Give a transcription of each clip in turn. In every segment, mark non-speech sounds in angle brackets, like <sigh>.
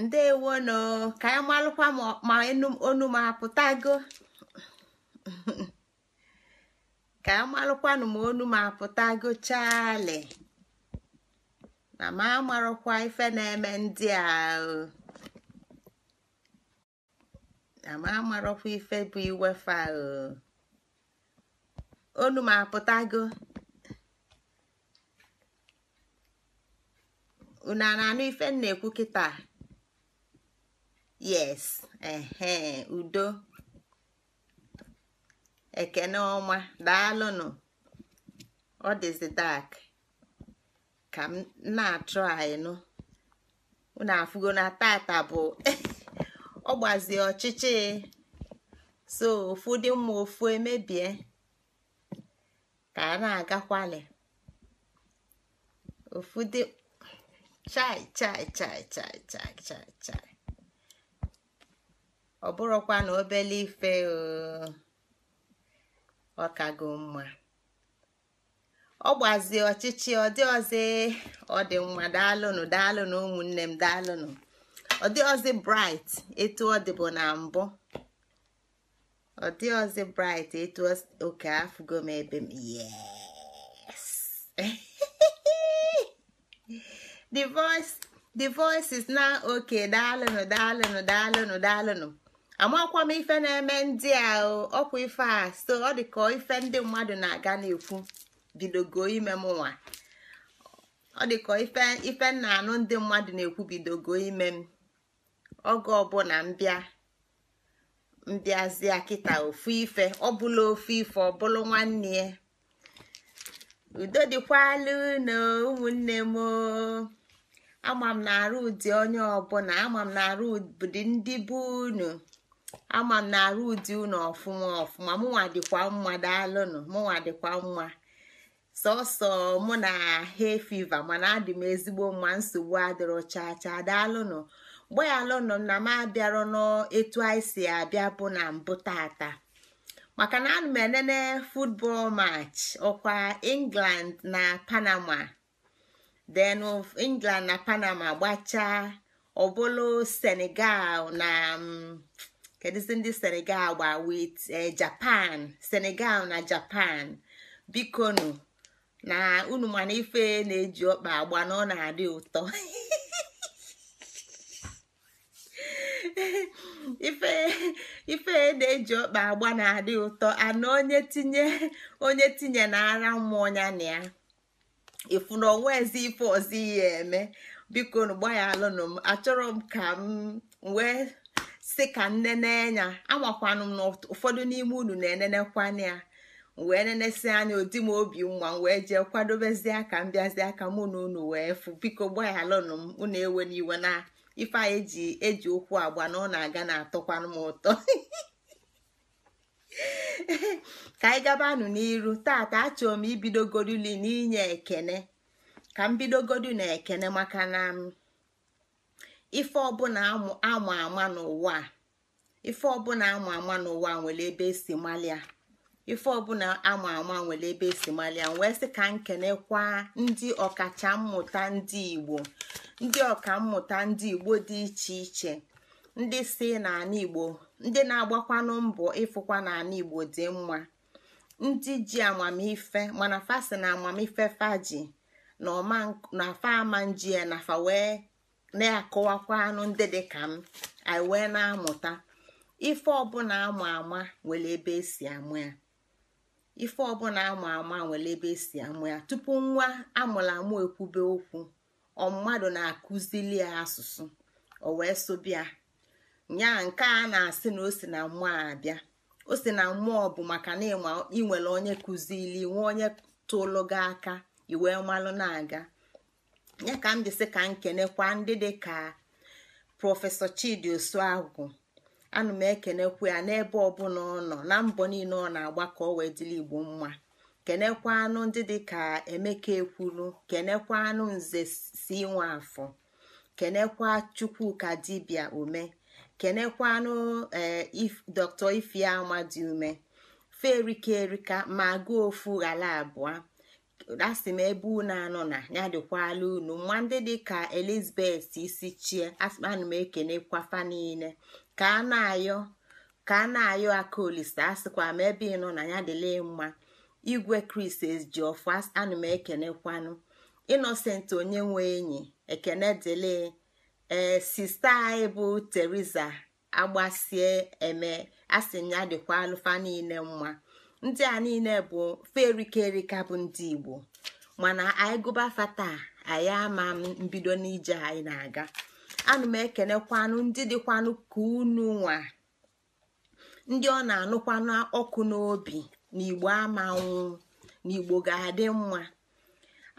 ndewonu ka anyị malụkwa ma onu m apụtago ka anyị malụkwanụ ma onu m apụtago chali na ma amarụkwa ife na-eme ndị a na ma amarụkwa ife bụ iwefa onu m apụtago unu a na-anụ ife m na-ekwu kịta yes ehe udo ekene ọma daalụnụ ọ dịzi dak ka m na-achụ anyị unu afụgo na tata bụ <laughs> ọ gbazie ọchịchị so ofu dị mma ofu emebie ka a na-agakwali ofu dị chai chai chai chai chai chai chai ọ bụrụkwa na obele ife uh, ọkago mma ọ gbazie ọchịchị ọ dị ọzọ ọ dị mma daalụnụ daalụnụ ụmụnne m daalụnụ ọ dị ọzọ bright etu ọ dịbụ na mbụ ọ dị ọzọ bright etu oke afụgo m ebe m yes <laughs> the voice the voice is now okay daalụnụ daalụnụ daalụnụ daalụnụ amakwa m ife na-eme ndị a ọkwa ife a so ọ dị ka ife ndị mmadụ na-aga na-ekwu bidogo ime m nwa ọ dị ka ife ife m anụ ndị mmadụ na-ekwu bidogo ime m oge ọbụla mbịa mbịazie kịta ofu ife ọbụla ofu ife ọbụla nwanne ya udo dịkwala na ụmụnne m ama m na arụ ụdị onye ọbụla ama m na arụ ụdị ndị bụ unu ama m na arụ ụdị ụnọ ọfụma ọfụma mụnwa dịkwa mma daalụnụ mụnwa dịkwa mma sọsọ mụ na he fiva mana adị m ezigbo mma nsogbu adịrọ chaa chaa daalụnụ mgbayalụnụ na m abịarọ n'etu anyị si abịa bụ na mbụ tata maka na ana m enene football match ọkwa england na panama then england na panama gbachaa ọbụlụ senegal na mm, kedụzi ndị senegal gba wit eh, japan senegal na japan bikonu na unu mana ife na-eji ọkpa agba na ọ na-adị ụtọ <laughs> ife ife na-eji ọkpa agba na-adị ụtọ ana onye tinye onye tinye na ara mmụọ ya na ya ịfụ na onwe ezi ife ọzọ ihe eme biko nu gbaya alụnụ m achọrọ m ka m nwee. si ka nnene anya amakwanụ m na ụfọdụ n'ime unu na-enenekwana ya wee nenesi anya odi m obi mma wee jee kwadobezie aka m bịazie aka mụ na unu wee fụ biko gbaghalụnụ m unu ewe n'iwe na ife a eji eji okwu agba na ọ na-aga na-atọkwanụ m ụtọ <laughs> ka anyị gabanụ n'iru tata achọrọ m ibidogoruli n'inye ekene ka m bidogodu na ekene maka na ife ọbụla amụ ama n'ụwa ife ọbụla ama ama n'ụwa nwere ebe esi malia ife ọbụla ama nwere ebe esi malia wee sị ka nkenekwa ndị ọkacha mmụta ndị igbo ndị ọkammụta ndị igbo dị iche iche ndị si n'ala igbo ndị na-agbakwanụ mbọ ịfụkwa n'ala igbo dị mma ndị ji amamife mana fasi na amamife faji na ọma na fa ama nji ya wee na-akọwakwa anụ ndị dị ka m anyị wee na-amụta ife ọbụla ama ama nwere ebe esi amụ ya ife ọbụla ama ama nwere ebe esi amụ ya tupu nwa amụrụ amụ ekwube okwu ọ mmadụ na-akụzili ya asụsụ o wee sobịa nya nke a na-asị na o si na mmụọ abịa o si na mmụọ bụ maka na ịnwere onye kụzili nwa onye tụlụ gị aka iwee malụ na-aga ya ka m ka nkenekwa ndị dị ka prọfesọ chidi osuagwu ana m ekenekwu ya n'ebe ọbụla ọ nọ na mbọ niile ọ na agbakọ ka wee dịla igbo mma kenekwa anụ ndị dị ka emeka ekwuru kenekwa anụ nze si nwa afọ kenekwa chukwuka dibia ume kenekwa anụ eh, dr dị ume ferika erika ma gaa ofu ghala abụọ asị m ebe unu anọ na ya dịkwala unu nwa ndị dị ka elizabeth isi chie ana m ekenekwafa niile ka a na-ayọ ka a na-ayọ aka olise asịkwa m ebe ị nọ na ya dịle mma igwe kris ji ọfụ ana m ekenekwanụ innocent onye nwe enyi ekene dịle ee sista anyị bụ teriza agbasie eme asị m ya dịkwa alụfa niile mma ndị a niile bụ ferikeerika bụ ndị igbo mana anyị gụba fata anyị ama mbido n'ije anyị na-aga anụ m ekenekwanụ ndị dịkwanụ ka unu nwa ndị ọ na-anụkwanụ ọkụ n'obi na igbo amanwụ na igbo ga-adị mma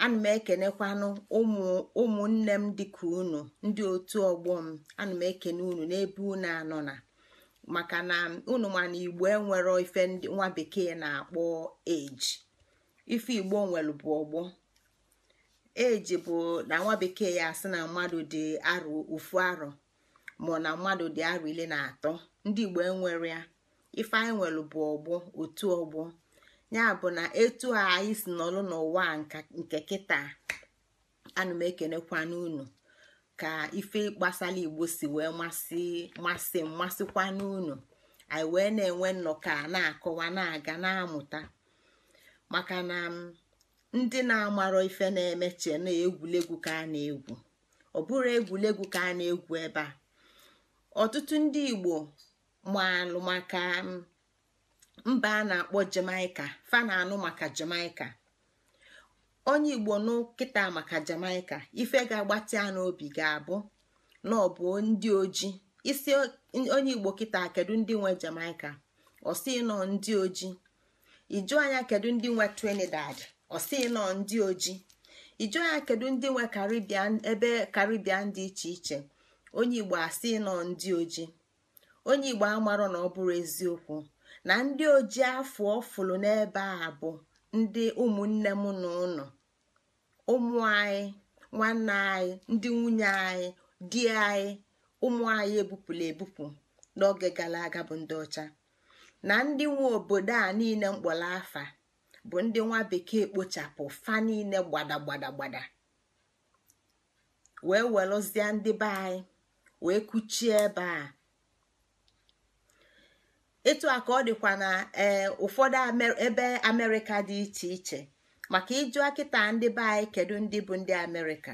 ana m ekenekwanụ ụmụ ụmụnne m dịka unu ndị otu ọgbọ m ana m ekene unu n'ebe unu anọ na. maka na unu ma na igbo enwero ife nwa bekee na-akpọ eji ife igbo nwere bụ ọgbọ eji bụ na nwa bekee ya asị na mmadụ dị arọ ofu arọ ma na mmadụ dị arọ ile na atọ ndị igbo enwere ya ife anyị nwere bụ ọgbọ otu ọgbọ ya bụ na etu a anyị si nọlụ n'ụwa nke kịta ana unu ka ife gbasara igbo si wee masị masị mmasịkwa n'unu anyị wee na-enwe nnọkọ na-akọwa na-aga na-amụta maka na ndị na-amarọ ife na-emeche na egwulegwu ka a na-egwu ọ bụrụ egwuregwu ka a na-egwu ebe ọtụtụ ndị igbo maalụ maka mba a na-akpọ jamaica fa anụ maka jamaica onye igbo nkịta maka jamaica ife ga-agbatị ya n'obi ga-abụ na ọ bụ ndị oji isi onye igbo kịta kedu ndị nwe jamaica ọsị nọ ndị oji iju anya kedu ndị nwe trinidad ọsị nọ ndị oji iju anya kedu ndị nwe karibian ebe karibian dị iche iche onye igbo asị nọ ndị oji onye igbo amarọ na ọ bụrụ eziokwu na ndị oji afọ ọfụlụ n'ebe a bụ ndị ụmụnne m na ụnụ ụmụ anyị nwanne anyị ndị nwunye anyị di anyị ụmụ anyị ebupụla ebupụ n'oge gara aga bụ ndị ọcha na ndị nwe obodo a niile mkpọrọ afa bụ ndị nwa bekee kpochapụ fa niile gbadagbadagbada wee welụzie ndị be anyị wee kuchie ebe a etu a ka ọ dịkwa na eh, ụfọdụ ebe amerịka dị iche iche maka ịjụ akịta ndị be anyị kedu ndị bụ ndị amerịka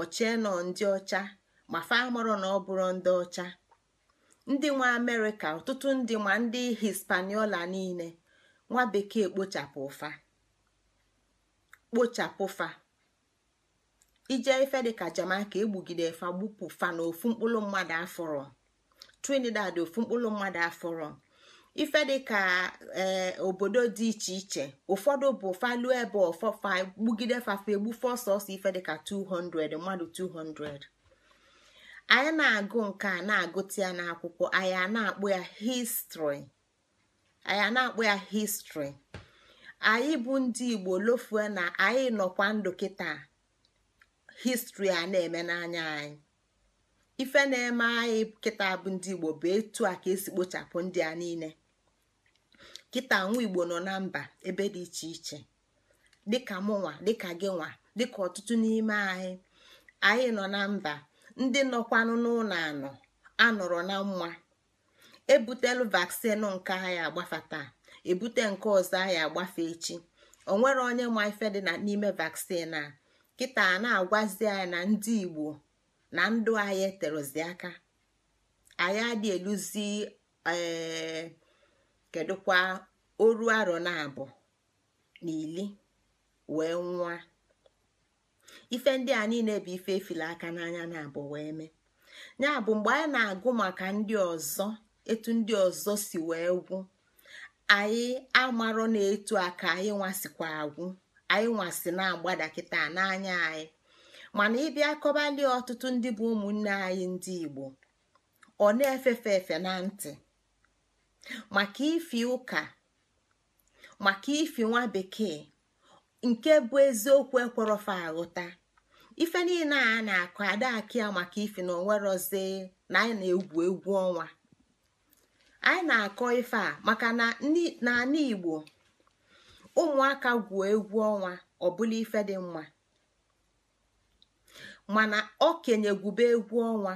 ọchie nọ ndị ọcha ma fa na ọ bụrụ ndị ọcha ndị nwa amerịka ọtụtụ ndị ma ndị hispaniola niile nwa bekee kpochapụ fa kpochapụ fa ije ife dịka jamaica egbugide fa gbupụ fa na ofu mkpụrụ mmadụ afọrọ trinidad ofu mkpụrụ mmadụ afọrọ ife dịka ee eh, obodo dị iche iche ụfọdụ bụ falu ebe ọfọfa gbugide fafe egbufe ọsọsọ ife dịka 200 mmadụ 200 anyị na-agụ nke a na-agụta ya n'akwụkwọ anyị na-akpọ ya histrị anyị na akpụ ya histri anyị bụ ndị igbo lofue na anyị nọkwa ndụ kịta histri a na-eme n'anya anyị ife na-eme anyị kịta bụ ndị igbo bụ etu a ka esi kpochapụ ndị a niile kịta nwa igbo nọ na mba ebe dị iche iche dịka mụnwa dịka gị nwa dịka ọtụtụ n'ime anyị anyị nọ na mba ndị nọkwanụ n'ụlọ anọ anọrọ na mma ebutelu vaksin nke anyị taa ebute nke ọzọ anyị agbafe echi onwere onye ma ife dị n'ime vaksin a kịta a na-agwazi anyị na ndị igbo na ndụ anyị eterozi aka anyị adị eluzi ee eh, kedụkwa oru arọ na abụọ na ili wee nwa ife ndị a niile bụ ife efila aka n'anya na abụ wee mee ya bụ mgbe anyị na-agụ maka ndị ọzọ etu ndị ọzọ si wee gwụ anyị amarọ na etu aka anyị nwasikwa agwụ anyị nwasị na-agbada n'anya anyị mana ịbịa kọbalie ọtụtụ ndị bụ ụmụnne anyị ndị Igbo ọ na-efefe efe na ntị maka ifi ụka maka ifi nwa bekee nke bụ eziokwu ekwerọfa ahụta, ife niile a na akọ adịghị ya maka ifi na onwerozi na anyị na-egwu egwu ọnwa anyị na-akọ ife a maka na n'ala Igbo ụmụaka gwuo egwu ọnwa ọbụla ife dị mma mana okenye gwube egwu ọnwa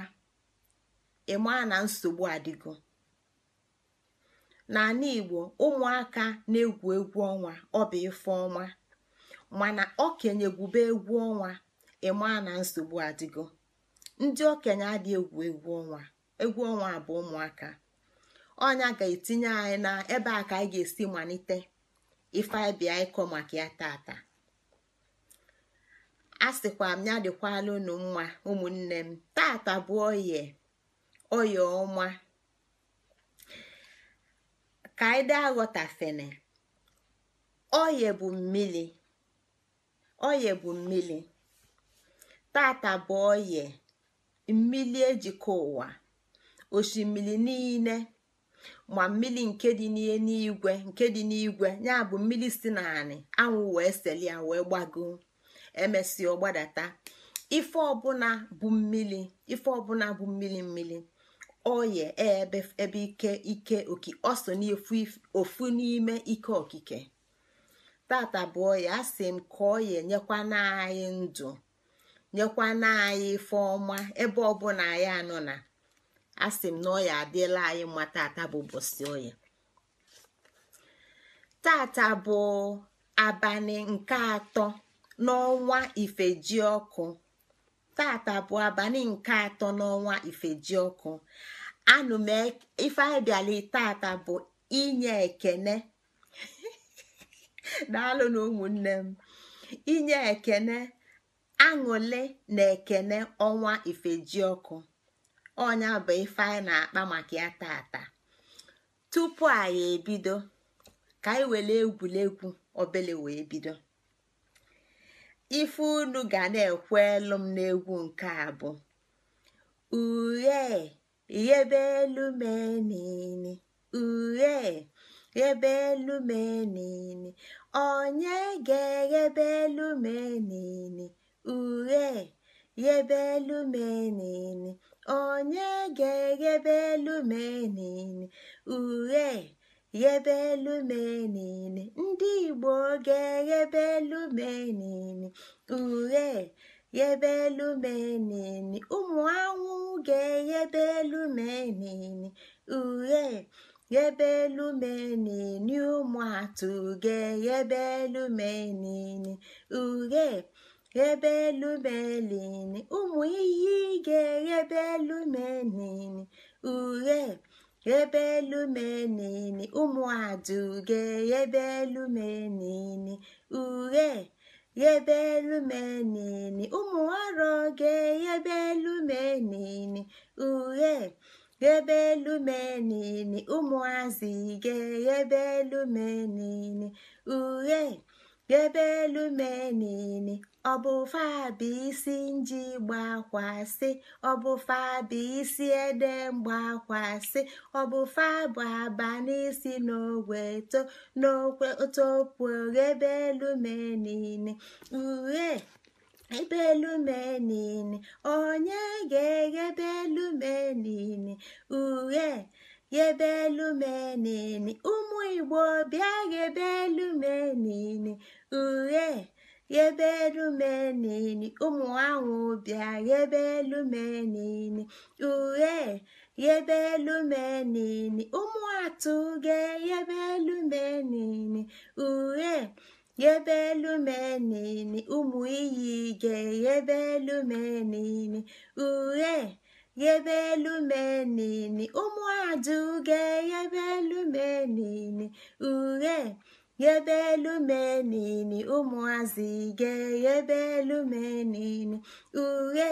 ịmaa na nsogbu adịgo n'ala igbo ụmụaka na-egwu egwu ọnwa ọ bụ ife ọnwa mana okenye gwube egwu ọnwa ịma na nsogbu adịgo ndị okenye adị egwu egwu ọnwa egwu ọnwa bụ ụmụaka ọnya ga-etinye anyị na ebe a ka anyị ga-esi malite ife ịkọ maka ya tata a m ya dịkwala unu mma ụmụnne m tata bụ oye oye ka anyị dị aghọtafene oye bụ mmiri oye bụ mmiri tata bụ oye mmiri ejikọ ụwa osimiri niile ma mmiri nke dị n'igwe nke dị n'igwe ya bụ mmiri si naanị anwụ wee seli ya wee gbagoo ọ ọgbadata ife ọbụla bụ mmiri ife ọbụla bụ mmiri mmiri oye ebe ike ike ọ so ofu n'ime ike okike tata bụ ya asị m ka oye nyekwana anyị ndụ nyekwa anyị ife ọma ebe ọbụla anyị anọ na asị m na oya adịla anyị mma tata bụ bosi oya tata bụ abalị nke atọ n'ọnwa ji ọkụ tata bụ abalị nke atọ n'ọnwa ifejiọkụ e, ife anyị bịala tata bụ inye ekene <laughs> daalụ na ụmụnne m inye ekene aṅụle na ekene ọnwa ifejiọkụ ọnya bụ ife anyị na-akpa maka ya tata tupu anyị ebido ka anyị were egwuregwu obele wee bido ife unu ga na-ekwu elu m n'egwu nke a bụ uhe ghebe elu menini uhie ghebe elu menini onye ga-eghebe elu menini uhie ghebe elu menini onye ga-eghebe elu menini uhe ghebelụmenini ndị Igbo ga yebe ughe ghebelụmenini ụmụ anwụ ga-eghebelụmenini ughe ghebelụmenini ụmụ atụ ga-eghebelụmenini ughe ghebelụmenini ụmụ iyi ga-eghebelụmenini ughe ụmụ ụmụaduge yebelumenini uhe yebelumenini ụmụoroge yebelumenini uhe yebelumenini ụmụazịge yebelumenini uhe ebe elu menini ọbụfabisi nji gbakwasị ọbụfabisi ede mgbakwasị ọbụfabụ abanisi n'ogwe to n'okwe topu ebe elu menini uhe ebe elu menini onye ga ebe elu menini uhe ghebe elu ụmụ igbo bịa ghebe elu menene uhe ghebe elu menene ụmụ anwụ bịa ghebe elu menene uhe ghebe elu menene ụmụ atụ ge ghebe elu menene uhe ghebe elu menene ụmụ iyi ge ghebe elu menene uhe yebelumenini ụmụaduge yebelumenini uhe yebelumenini ụmụazị ge yebelumenini uhe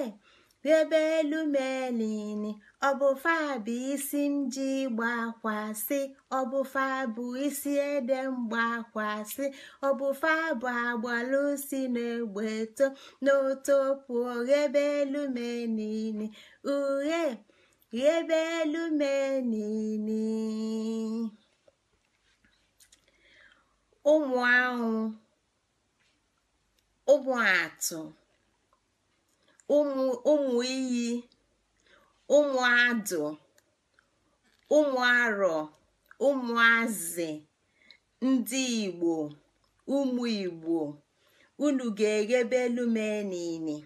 ebe elu melini ọbụfa bụ isi m ji gbakwasị ọbụfa bụ isi ede mgbakwasị ọbụfa bụ agbalụ si n'egbe to n'otopu rịebe elu melini uhe rịebe elu melini ụmụ ahụ ụmụ atụ ụmụ iyi ụmụ adụ ụmụ arọ ụmụazị ndị igbo ụmụ igbo unu ga-eghebe elu mee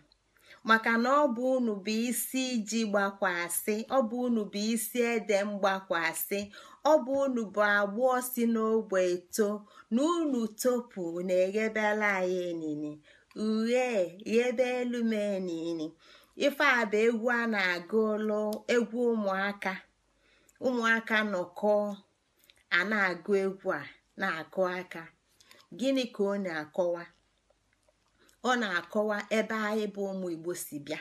maka na ọ bụ unu bụ isi iji gbakwasị ọ bụ unu bụ isi ede mgbakwasị ọ bụ unu bụ agbụọ si n'ogbe eto na unu topu na-eghebela anyị enini ihe ebe elu mee niile ife a bụ egwu a na-agụlụ egwu ụmụaka ụmụaka nọkọ a na-agụ egwu a na-akụ aka gịnị ka ọ na-akọwa ọ na-akọwa ebe anyị bụ ụmụ Igbo si bịa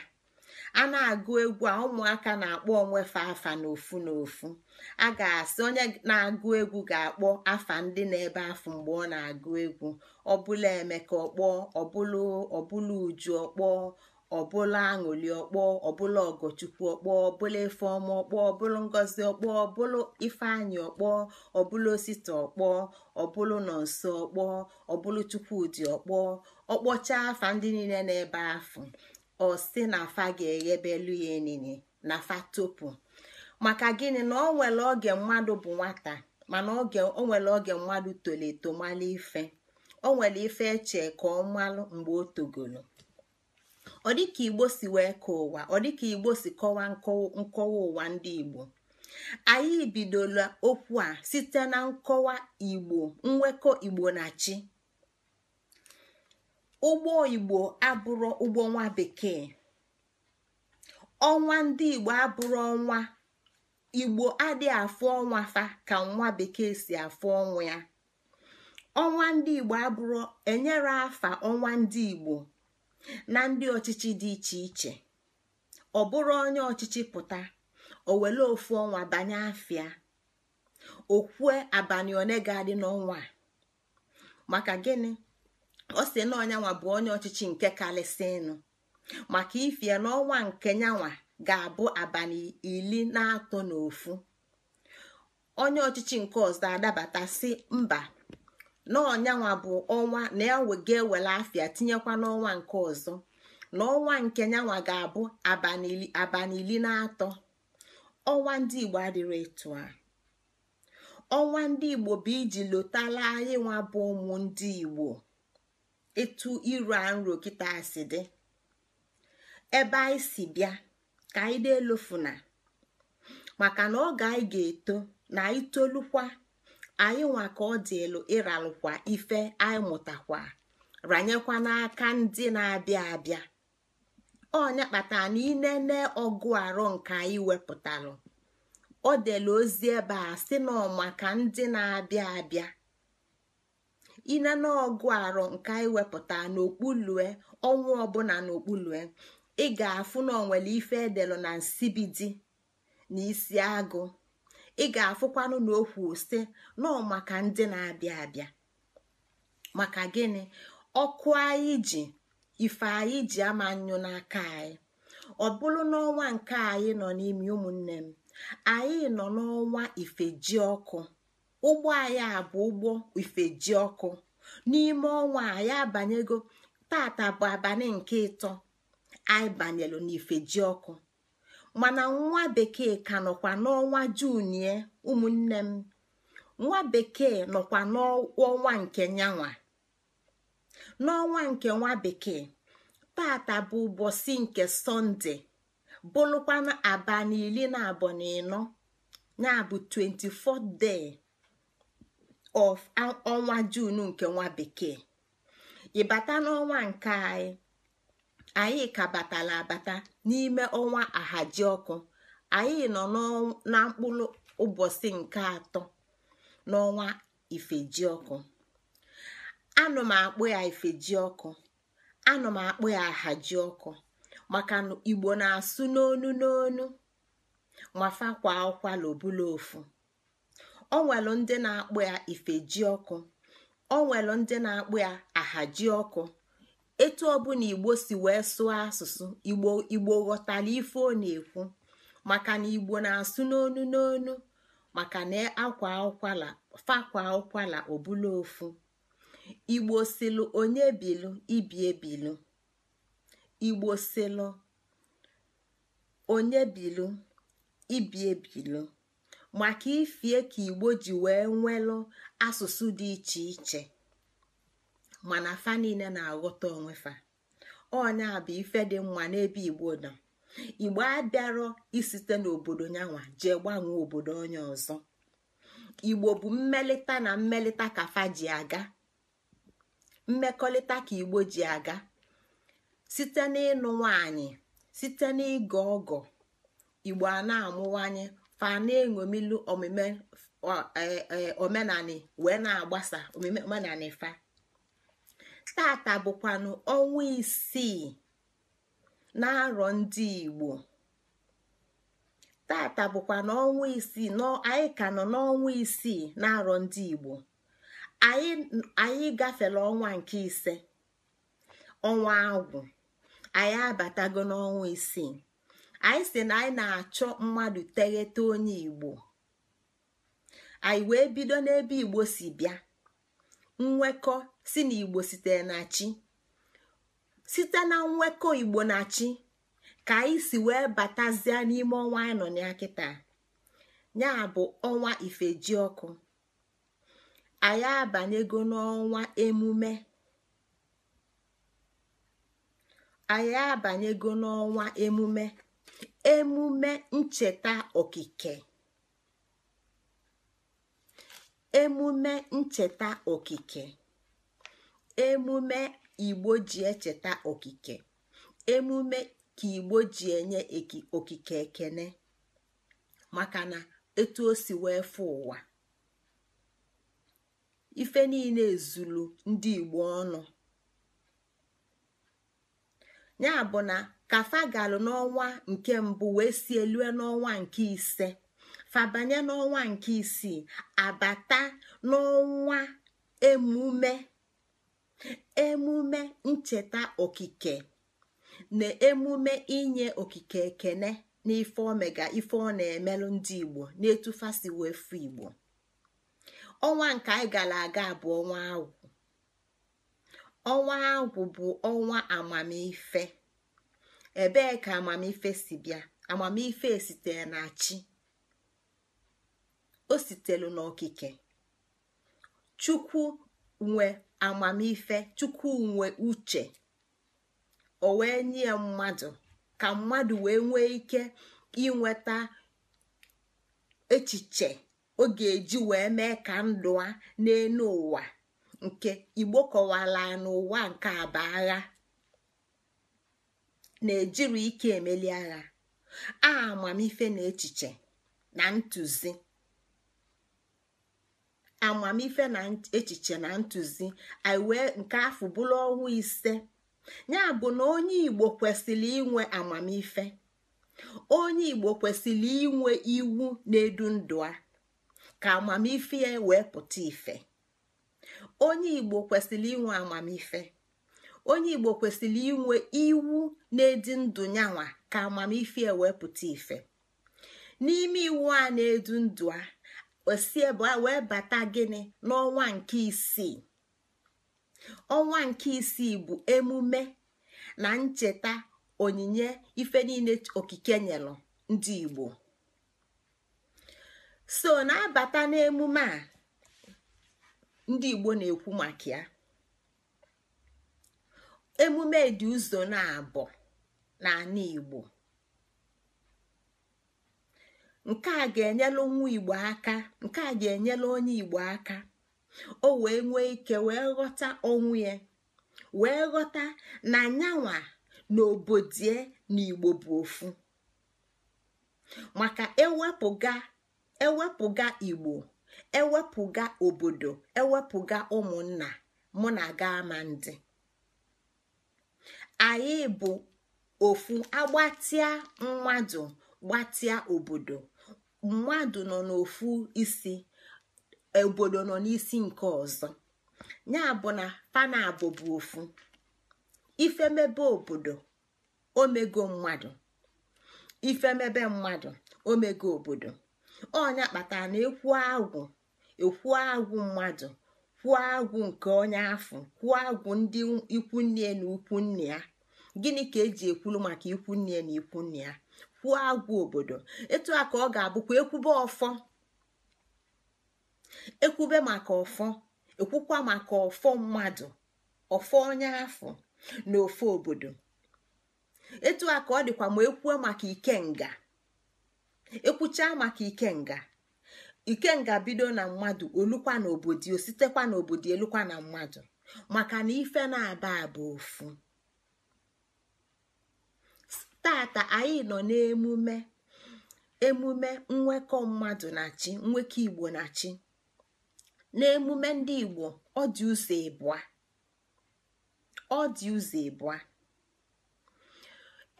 a na-agụ egwu a ụmụaka na-akpọ onwe fa afa n'ofu n'ofu a ga-asị onye na-agụ egwu ga-akpọ afa ndị na-ebe afụ mgbe ọ na-agụ egwu ọbụla emeka ọkpọọ ọbụla ọbụla uju ọkpọ ọbụla aṅụli ọkpọ ọbụla ọgọchukwu ọkpọ ọbụla ifeọma ọkpọọ ọbụla ngozi ọkpọọ ọbụla ifeanyị ọkpọ ọbụla osita ọkpọ ọbụla nọ nso ọkpọọ ọbụla chukwudị ọkpọ ọkpọcha afa ndị niile na-ebe afụ ọ sị na afa ga-eghebelu ya enini na fa topu maka gịnị na ọ nwere oge mmadụ bụ nwata mana oge o nwere oge mmadụ toleto mala ife o nwere ife eche ka ọ malụ mgbe o togolo ọ dịka igbo si wee ka ụwa ọ dịka igbo si kọwa nkọwa ụwa ndị igbo anyị bidola okwu a site na nkọwa igbo nwekọ igbo na chi ụgbọ igbo abụrụ ụgbọ nwa bekee ọnwa ndị igbo abụrụ ọnwa igbo adịghị afụ ọnwa fa ka nwa bekee si afụ ọnwa ya ọnwa ndị igbo abụrụ enyere afa ọnwa ndị igbo na ndị ọchịchị dị iche iche ọ bụrụ onye ọchịchị pụta o ofu ọnwa banye afịa okwue abalị one ga-adị n'ọnwa a maka gịnị ọ sị na ọnyanwa bụ onye ọchịchị nke kalịsịnụ maka ifie n'ọnwa nke nyanwa ga-abụ abalị iri na atọ n'ofu onye ọchịchị nke ọzọ adabata si mba na bụ ọnwa na ga ewere afia tinyekwa n'ọnwa nke ọzọ na nke nyanwa ga-abụ abalị iri na atọ ọnwa ndị igbo adịrị etu a ọnwa ndị igbo bụ iji lotala anyị nwa bụ ụmụ ndị igbo etu iru a nro kita si dị ebe anyị si bịa ka anyị delofuna maka na oge anyị ga-eto na anyị tolukwa anyị nwa ka ọ dị elu ịralụkwa ife anyị mụtakwa ranyekwa n'aka ndị na-abịa abịa ọnya kpatara na inene ọgụ arụ nke anyị wepụtalụ o delu ozi ebe a sị na maka ndị na-abịa abịa inene ọgụ arọ nke anyị wepụta n'okpulue ọnwa ọbụla n'okpulue ị ga-afụ na onwere ife edelụ na nsibidi na isi agụ ị ga-afụkwanụ na okwu si nọọ maka ndị na-abịa abịa maka gịnị ọkụ anyị ji ife anyị ji ama nyụ n'aka anyị ọ bụrụ n'ọnwa nke anyị nọ n'imi ụmụnne m anyị nọ n'ọnwa ifeji ọkụ ụgbọ anyị a bụ ụgbọ ifeji ọkụ n'ime ọnwa a ya abanyego tata bụ abalị nke ịtọ anyị banyelu n'ifeji ọkụ mana nwa bekee ka nọkwa n'ọnwa junie ụmụnne m nwa bekee nọkwa n'ọnwa nke nyanwa n'ọnwa nke nwa bekee tata bụ ụbọchị nke sọnde bụlụkwana abalị iri na abụọ na ịnọ ya bụ 24 day of ọnwa jun nke nwa bekee ịbata n'ọnwa nke anyị anyị ka batala abata n'ime ọnwa ahaji ọkụ anyị nọ na mkpụrụ ụbọchị nke atọ n'ọnwa ifeji ọkụ anọ m akpụ ya ifeji ọkụ anọ m akpụ ya ahaji ọkụ maka igbo na-asụ n'onu n'onu ma fakwa ụkwala ofu onwelu ndị na-akpụ ya ji ọkụ o ndị na-akpụ ya ahaji ọkụ etu ọbụla igbo si wee sụọ asụsụ igbo igbo ghọtara ife ọ na-ekwu maka na igbo na-asụ n'onu n'onu maka na akwa ụkwala fakwa ụkwala ọbụla ofu igbo silụ onye bilu ibi ebilu igbo maka ifie ka igbo ji wee nwelụ asụsụ dị iche iche mana fa niile na-aghọta onwe fa a bụ ife dị mma n'ebe igbo nọ igbo abịarọ isite n'obodo nyanwa jee gbanwee obodo onye ọzọ igbo bụ mmelite na mmelite ka fa ji aga mmekọrịta ka igbo ji aga site n'ịnụ nwanyị site n'ịgọ ọgọ igbo a na-amụwanye fa na-eṅomilu omume e, e, omenani wee na-agbasa omume omenani fa tata bụkwanụ ọnwa isii na-arọ ndị igbo tata bụkwa n'ọnwa isii anyị ka nọ n'ọnwa isii na-arọ ndị igbo anyị gafere ọnwa nke ise ọnwa agwụ anyị abatago n'ọnwa isii anyị si na anyị na-achọ mmadụ teghete onye igbo anyị wee bido n'ebe igbo si bịa nwekọ si na igbo sitere na chi site na nwekọ igbo na chi ka anyị si wee batazie n'ime ọnwa anyị nọ na kịta ya bụ ọnwa ifeji anyị abanyego anyị abanyego n'ọnwa emume emume ncheta okike emume ncheta okike emume igbo ji echeta okike emume ka igbo ji enye okike ekene maka na etu o si wee fụ ụwa ife niile ezulu ndị igbo ọnụ ya bụ na ka fagalụ n'ọnwa nke mbụ wee si elue n'ọnwa nke ise fabanye n'ọnwa nke isii abata n'ọnwa emume emume ncheta okike na emume inye okike ekene n'ife omega ife ọ na-emelụ ndị igbo na igbo ọnwa nke anyị gara aga bụ ọnwa agwụ ọnwa agwụ bụ ọnwa amamife ebee ka amamife si bịa amamife esitere na chi o sitelu n'okike chukwu nwe amamife chukwu nwe uche o wee nye ya mmadụ ka mmadụ wee nwee ike inweta echiche ọ ga-eji wee mee ka ndụ a n'elu ụwa nke igbo kọwara n'ụwa nke abaghị. agha na-ejiri ike emeli agha a amamife na echiche na ntụzi amamife na echiche na ntụzi anyị wee nke afọ bụrụ ọnwa ise ya bụ na onye igbo kwesịrị inwe amamife onye igbo kwesịrị inwe iwu na-edu ndụ a ka amamife ya wee pụta ife onye igbo kwesịrị inwe amamife onye igbo kwesịrị inwe iwu na-edi ndụ nyanwa ka amamife wee pụta ife n'ime iwu a na-edu ndụ a e a wee bata gịnị n'ọnwa nke isii ọnwa nke isii bụ emume na ncheta onyinye ife niile okike nyelụ ndị igbo so na-abata n'emume a ndị igbo na-ekwu maka ya emume dị ụzọ na-abụ n'ala igbo nke a ga enyela nwa igbo aka nke a ga enyela onye igbo aka o wee nwee ike wee ghọta onwe ya wee ghọta na nyanwa na obodie na igbo bụ ofu maka ewepụga ewepụga igbo ewepụga obodo ewepụga ụmụnna mụ na aga ama ndị anyị bụ ofu agbatịa mmadụ gbatịa obodo mmadụ nọ n'ofu isi obodo nọ n'isi nke ọzọ ya bụ na panabụ bụ ofu ifemebe obodo omego mmadụ ifemebe mmadụ omego obodo onya kpatara na ekwu agwụ ekwu agwụ mmadụ kwuo agwụ nke onye ahụ kwuo agwụ ndị ikwunne na nne ya gịnị ka eji ekwulu maka ikwunne na ikwunne ya kwuo agwụ obodo etu a ka ọ ga-abụkwa ekwube ọfọ ekwube maka ọfọ ekwukwa maka ọfọ mmadụ ọfọ onye afọ na ofe obodo etu a ka ọ dịkwa ma ekwuo maka ikenga ekwuchaa maka ikenga nga bido na mmadụ olukwa na obodo sitekwa na obodo elukwa na mmadụ maka na ife na-aba aba ofu tata anyị nọ n'emume emume nwekọ mmadụ na chi nwekọ igbo na chi n'emume ndị igbo ọ dị ụzọ ịbụa ọ dị ụzọ ịbụa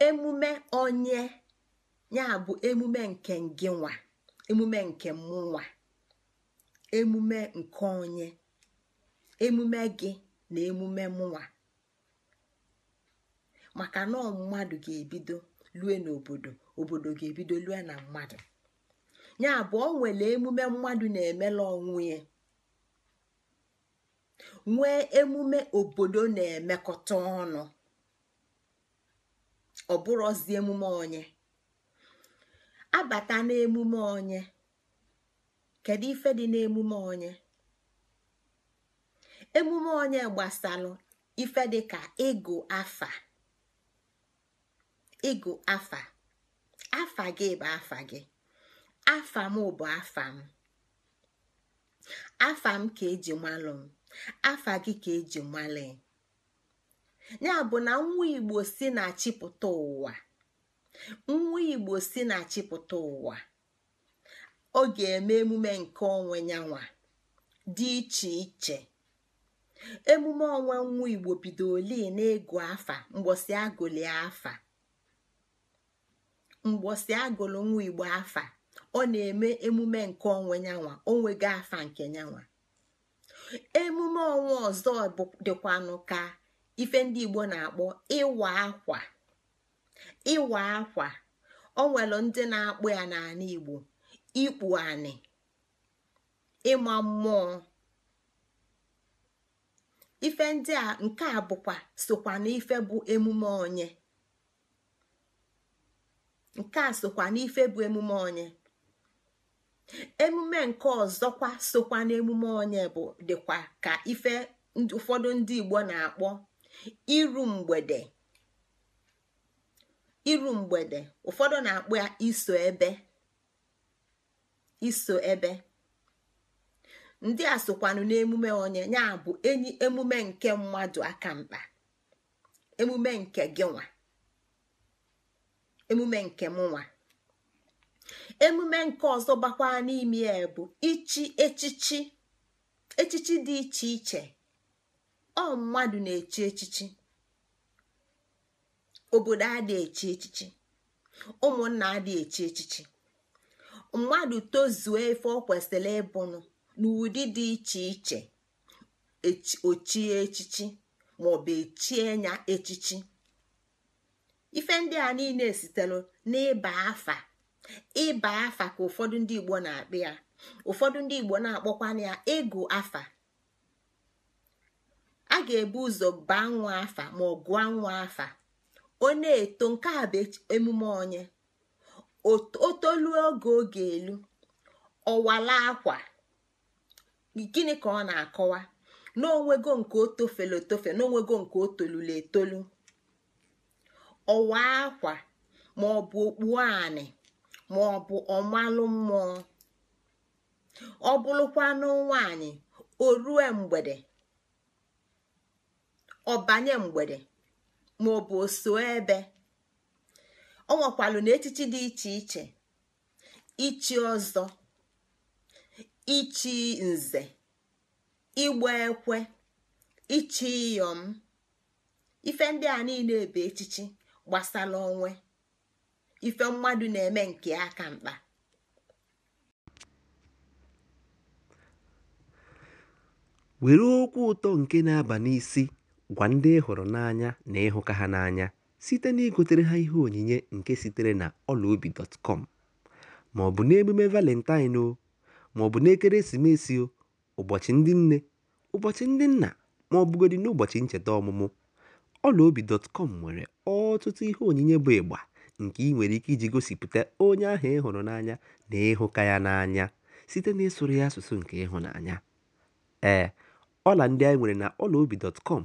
emume onye ya bụ emume nke ngịnwa emume nke mmụwa emume nke onye emume gị na emume mụnwa maka na mmadụ ga-ebido lue n'obodo obodo ga-ebido lue na mmadụ ya abụọ nwere emume mmadụ na-emela onwe ya nwee emume obodo na-emekọta ọnụ ọ bụrụzi emume onye abata n'emume onye kedu ife dị n'emume onye emume onye gbasalụ ife dị ka ịgụ afa ịgụ afa afa gị bụ afa gị afa m bụ afa m afa m ka eji malụ m afa gị ka eji male ya bụ na nwa igbo si na chịpụta ụwa nwa igbo si na achịpụta ụwa ọ ga-eme emume nke onwe nyanwa dị iche iche emume ọnwa nwa igbo bido bidoli na-ego afa mgbọsi agụlị afa nwa igbo afa ọ na-eme emume nke onwe nyanwa onwego afa nke nyanwa emume ọnwa ọzọ dịkwanụ ka ife ndị igbo na-akpọ ịwa akwa ịwa akwa o nwelu ndị na-akpụ ya n'ala igbo ikpu anị ịma mmụọ ife nke a bụkwa sokwa n'ife bụ emume onye bụ emume onye emume nke ọzọkwa sokwa n'emume onye bụ dịkwa ka ife ụfọdụ ndị igbo na-akpọ iru mgbede iru mgbede ụfọdụ na-akpụ ya iso ebe iso ebe ndị a sokwanụ n'emume onye ya bụ enyi emume nke mmadụ aka mkpa emume nke gị nwa emume nke m nwa emume nke ọzọ gbakwa n'ime ya bụ ichi echichi echichi dị iche iche ọ mmadụ na-echi echichi obodo adị echi echichi ụmụnna adị echi echichi mmadụ tozuo efe ọ kwesịrị ịbụnụ n'ụdị dị iche iche ochie echichi maọbụ echie nya echichi ife ndị a niile sitere n'ịba afa ịba afa ka ụfọdụ ndị igbo na-akpị ya ụfọdụ ndị igbo na-akpọkwana ya ịgụ afa a ga-ebu ụzọ baa nwa afa ma ọ gụọ nwa afa ọ na-eto nke a bụ emume onye o oge oge elu ọwala akwa gịnị ka ọ na-akọwa n'onwego nke o tofelu etofe n'onwego nke o tolulu etolu ọwa akwa ma ọ bụ okpu anị ma ọ bụ ọmalụ mmụọ ọ bụrụkwanụ nwanyị o rue mgbede ọ banye mgbede Ma bụ oso ebe ọ nwekwalụ na echichi dị iche iche ichi ọzọ ichi nze ịgba ekwe ichi iyom ife ndị a niile bụ echichi gbasara onwe ife mmadụ na-eme nke aka mkpa were okwu ụtọ nke na-aba n'isi Gwa ndị ị hụrụ n'anya na ịhụka ha n'anya site na igotere ha ihe onyinye nke sitere na ọlaobi.com ma ọ bụ n'emume Valentine o, ma bụ n'ekeresimesi o, ụbọchị ndị nne, ụbọchị ndị nna ma ọ n'ụbọchị ncheta ọmụmụ, ọlaobi.com nwere ọtụtụ ihe onyinye bụ ịgba nke ị nwere ike iji gosipụta onye ahụ ịhụrụ n'anya na ịhụka ya n'anya site n'ịsụrụ ya asụsụ nke ịhụnanya. Ee, ọla ndị anyị nwere na ọlaobi.com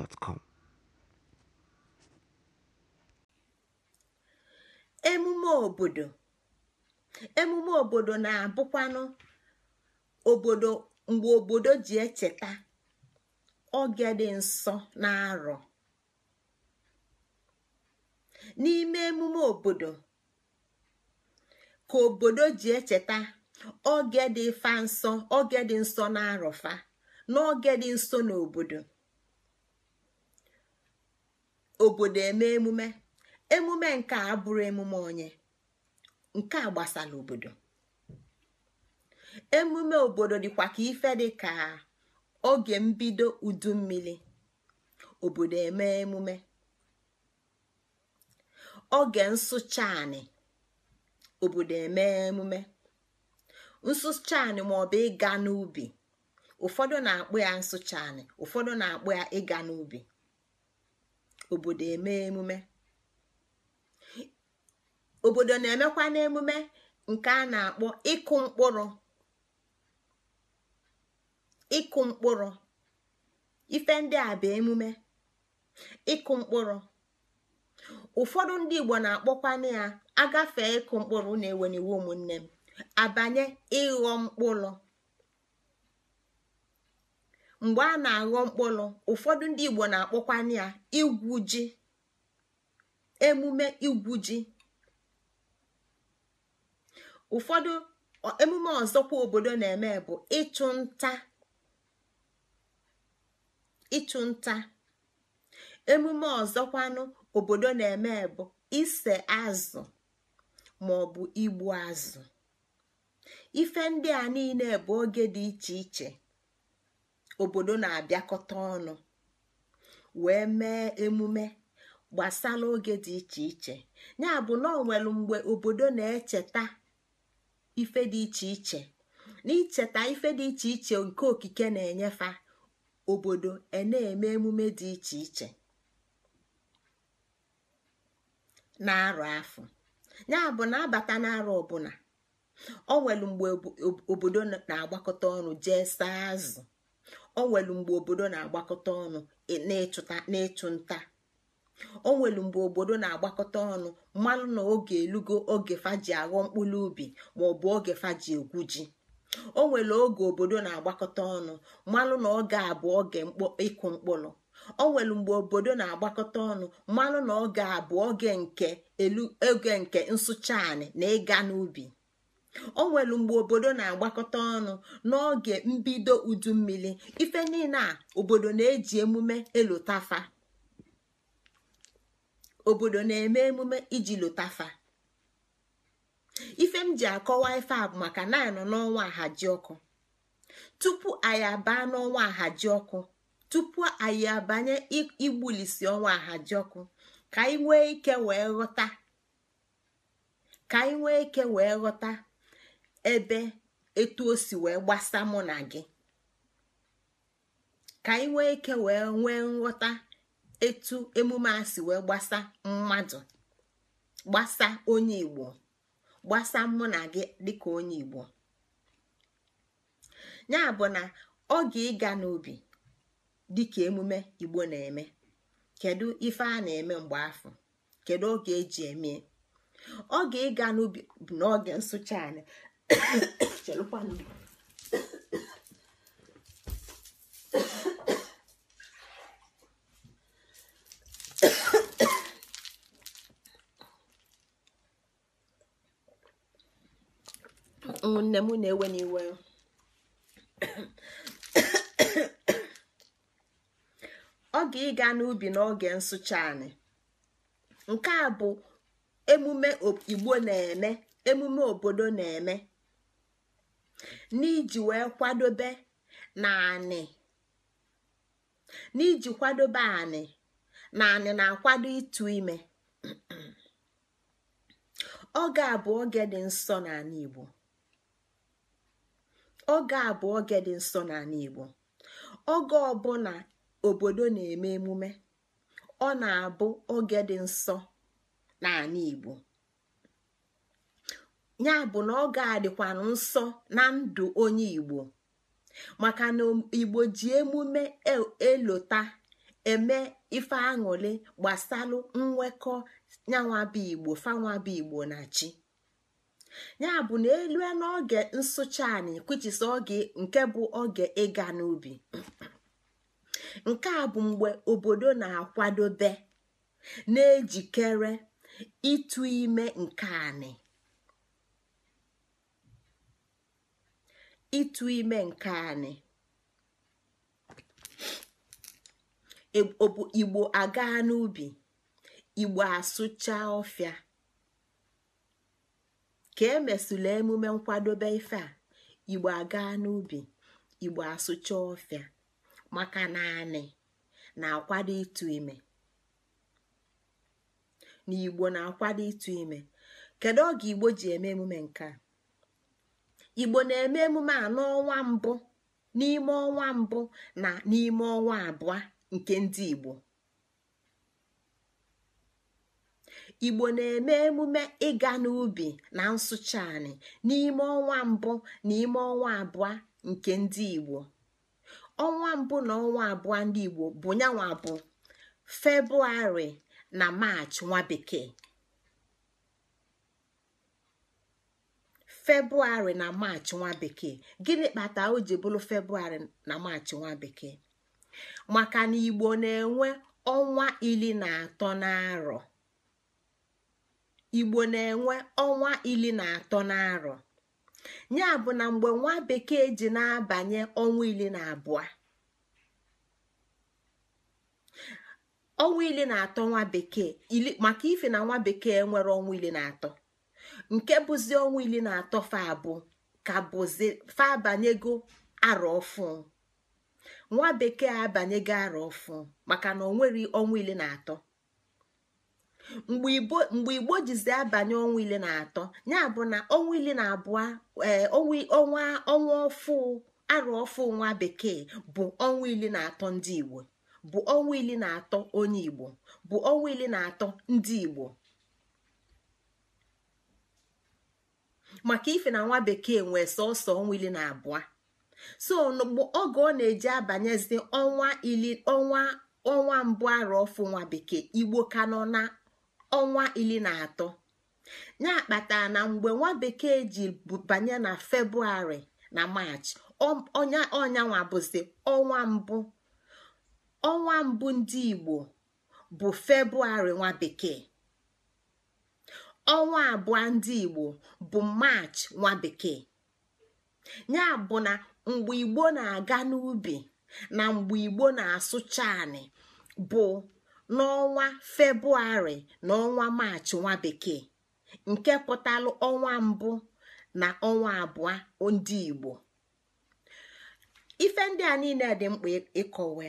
gmail.com emume obodo emume obodo na-abụkwanụ obodo mgbe obodo ji echeta oge dị nsọ na-arọ n'ime emume obodo ka obodo ji echeta oge dị fa nsọ oge dị nsọ na arọfa n'oge dị nso n'obodo obodo eme emume emume nke a emume onye nke a gbasara obodo emume obodo dịkwa ka ife dị ka oge mbido udu mmiri obodo eme emume oge nsụcha obodo eme emume nsụcha anị maọbụ ịga n'ubi ụfọdụ na-akpụ ya nsụcha ụfọdụ na-akpụ ya ịga n'ubi obodo eme emume obodo na-emekwa n'emume nke a na-akpọ ịkụ mkpụrụ ịkụ mkpụrụ ife ndị a bụ emume ịkụ mkpụrụ ụfọdụ ndị igbo na-akpọkwana ya agafe ịkụ mkpụrụ na-eweniwe ụmụnne m abanye ịghọ mkpụrụ mgbe a na-aghọ mkpụrụ ụfọdụ ndị igbo na akpọkwanụ ya igwu ji emume igwu ji ụfọdụ emume ọzọkwa obodo na-eme bụ ịchụ nta emume ọzọkwanụ obodo na-eme bụ ise azụ ma ọ bụ igbu azụ ife ndị a niile bụ oge dị iche iche obodo na-abịakọta ọnụ wee mee emume gbasara oge dị iche iche ya bụ na ọ mgbe obodo na-echeta ife dị iche iche na icheta ife dị iche iche nke okike na-enyefa obodo e na-eme emume dị iche iche na-arụ afọ ya bụ na abata n'arụ ọbụla o mgbe obodo na-agbakọta ọnụ jee saa azụ o nwelu mgbe obodo na-agbakọta ọnụ e, n'ịchụ nta o nwelu mgbe obodo na-agbakọta ọnụ mmanụ na oge elugo oge faji aghọ mkpụrụ ubi ma ọ bụ oge faji egwu ji o nwere oge obodo na-agbakọta ọnụ mmanụ na oge abụọ oge ịkụ mkpụrụ o nwere mgbe obodo na-agbakọta ọnụ mmanụ na oge abụọ oge nke elu oge nke nsụcha anị na ịga n'ubi o nwere mgbe obodo na-agbakọta ọnụ n'oge mbido udu mmiri ife niile a obodo na-eji emume elotafa eme emume iji lotafa ife m ji akọwa ife a bụ maka na anọ n'ọnwa ahaji ọkụ tupu anyị abaa n'ọnwa ahaji ọkụ tupu anyị abanye igbulisi ọnwa ahaji ọkụ ka anyị ike wee ghọta ike wee ghọta ebe etu o si wee gbasa mụ na gị ka anyị nwee ike wee nwee nghọta etu emume a si wee gbasa mmadụ gbasa onye igbo gbasa mụ na gị dịka onye igbo ya bụ na oge ịga n'ubi dịka emume igbo na-eme kedu ife a na-eme mgbe afọ kedu oge eji eme oge ịga n'ubi n'oge nsụcha anyị Chalupano. ụmụnne m na-ewe n'iwe oge ịga n'ubi n'oge nsụcha anyị nke a bụ emume igbo na-eme emume obodo na-eme n'iji wee kwadobe na anị na anị na-akwado ịtụ ime oge a bụ oge dị nsọ n'ala Igbo oge ọ bụ oge obodo na-eme emume ọ na-abụ oge dị nsọ n'ala Igbo ya bụ na ọ ga-adịkwanụ nsọ na ndụ onye igbo maka na igbo ji emume e, elota eme ife aṅụrị gbasalụ nwekọ nyanwabụ igbo fanwabụ igbo na chi ya bụ na elu n'oge nsụcha anyị kwuchisi oge nke bụ oge ịga n'ubi nke a bụ mgbe obodo na-akwadobe na-ejikere ịtụ ime nke anyị. ịtụ ime nke anyị e, igbo aga n'ubi igbo asụcha ọfịa ka emesụla emume nkwadobe ife a igbo aga n'ubi igbo asụcha ọfịa maka naanị na-akwado ịtụ ime na igbo na-akwado ịtụ ime kedu oge igbo ji eme emume nke a igbo na-eme emume a n'ọnwa mbụ n'ime ọnwa mbụ na n'ime ọnwa abụọ nke ndị igbo igbo ịga n'ubi na nsụcha n'ime ọnwa mbụ na ọnwa abụọ nke ndị igbo ọnwa mbụ na ọnwa abụọ ndị igbo bụ nyanwa bụ febrụwarị na maachị nwa bekee februarị na maachị nwa bekee gịnị kpata o ji bụrụ februarị na maachị nwa bekee maka na igbo na-enwe ọnwa ili na atọ n'arọ igbo na-enwe ọnwa ili na atọ n'arọ ya bụ na mgbe nwa bekee ji na-abanye ọnwa ili na abụọ ọnwa ili na atọ nwa bekee maka ife na nwa bekee nwere ọnwa ili na atọ nke bụzi ọnwa iri na atọ fa abụ ka bụzi fa abanyego arọ ọfụ nwa bekee abanyego arọ ọfụ maka na onwere ọnwa iri na atọ mgbe igbo jizi abanye ọnwa na atọ ya bụ na ọnwa iri na abụọ e, ọnwa ọnwa ọfụ arọ ọfụ nwa bekee bụ ọnwa iri na atọ ndị igbo bụ ọnwa na atọ onye igbo bụ ọnwa ili na atọ ndị igbo maka ife na nwa bekee nwee sọsọ ọnwa ili na abụọ so oge ọ na-eji abanyezi ọnwa ili ọnwa ọnwa mbụ arụ ọfụ nwa bekee igbo ka nọ na ọnwa ili na atọ ya kpatara na mgbe nwa bekee ji banye na febrụwarị na maachị ọnya ọnyanwa bụzi ọnwa mbụ ọnwa mbụ ndị igbo bụ febrụwarị nwa bekee ọnwa abụọ ndị igbo bụ maachị nwa bekee ya bụ na mgbe igbo na-aga n'ubi na mgbe igbo na-asụcha anị bụ n'ọnwa febrụwarị na ọnwa maachị nwa bekee nke pụtalụ ọnwa mbụ na ọnwa abụọ ndị igbo ife ndị a niile dị mkpa ịkọwa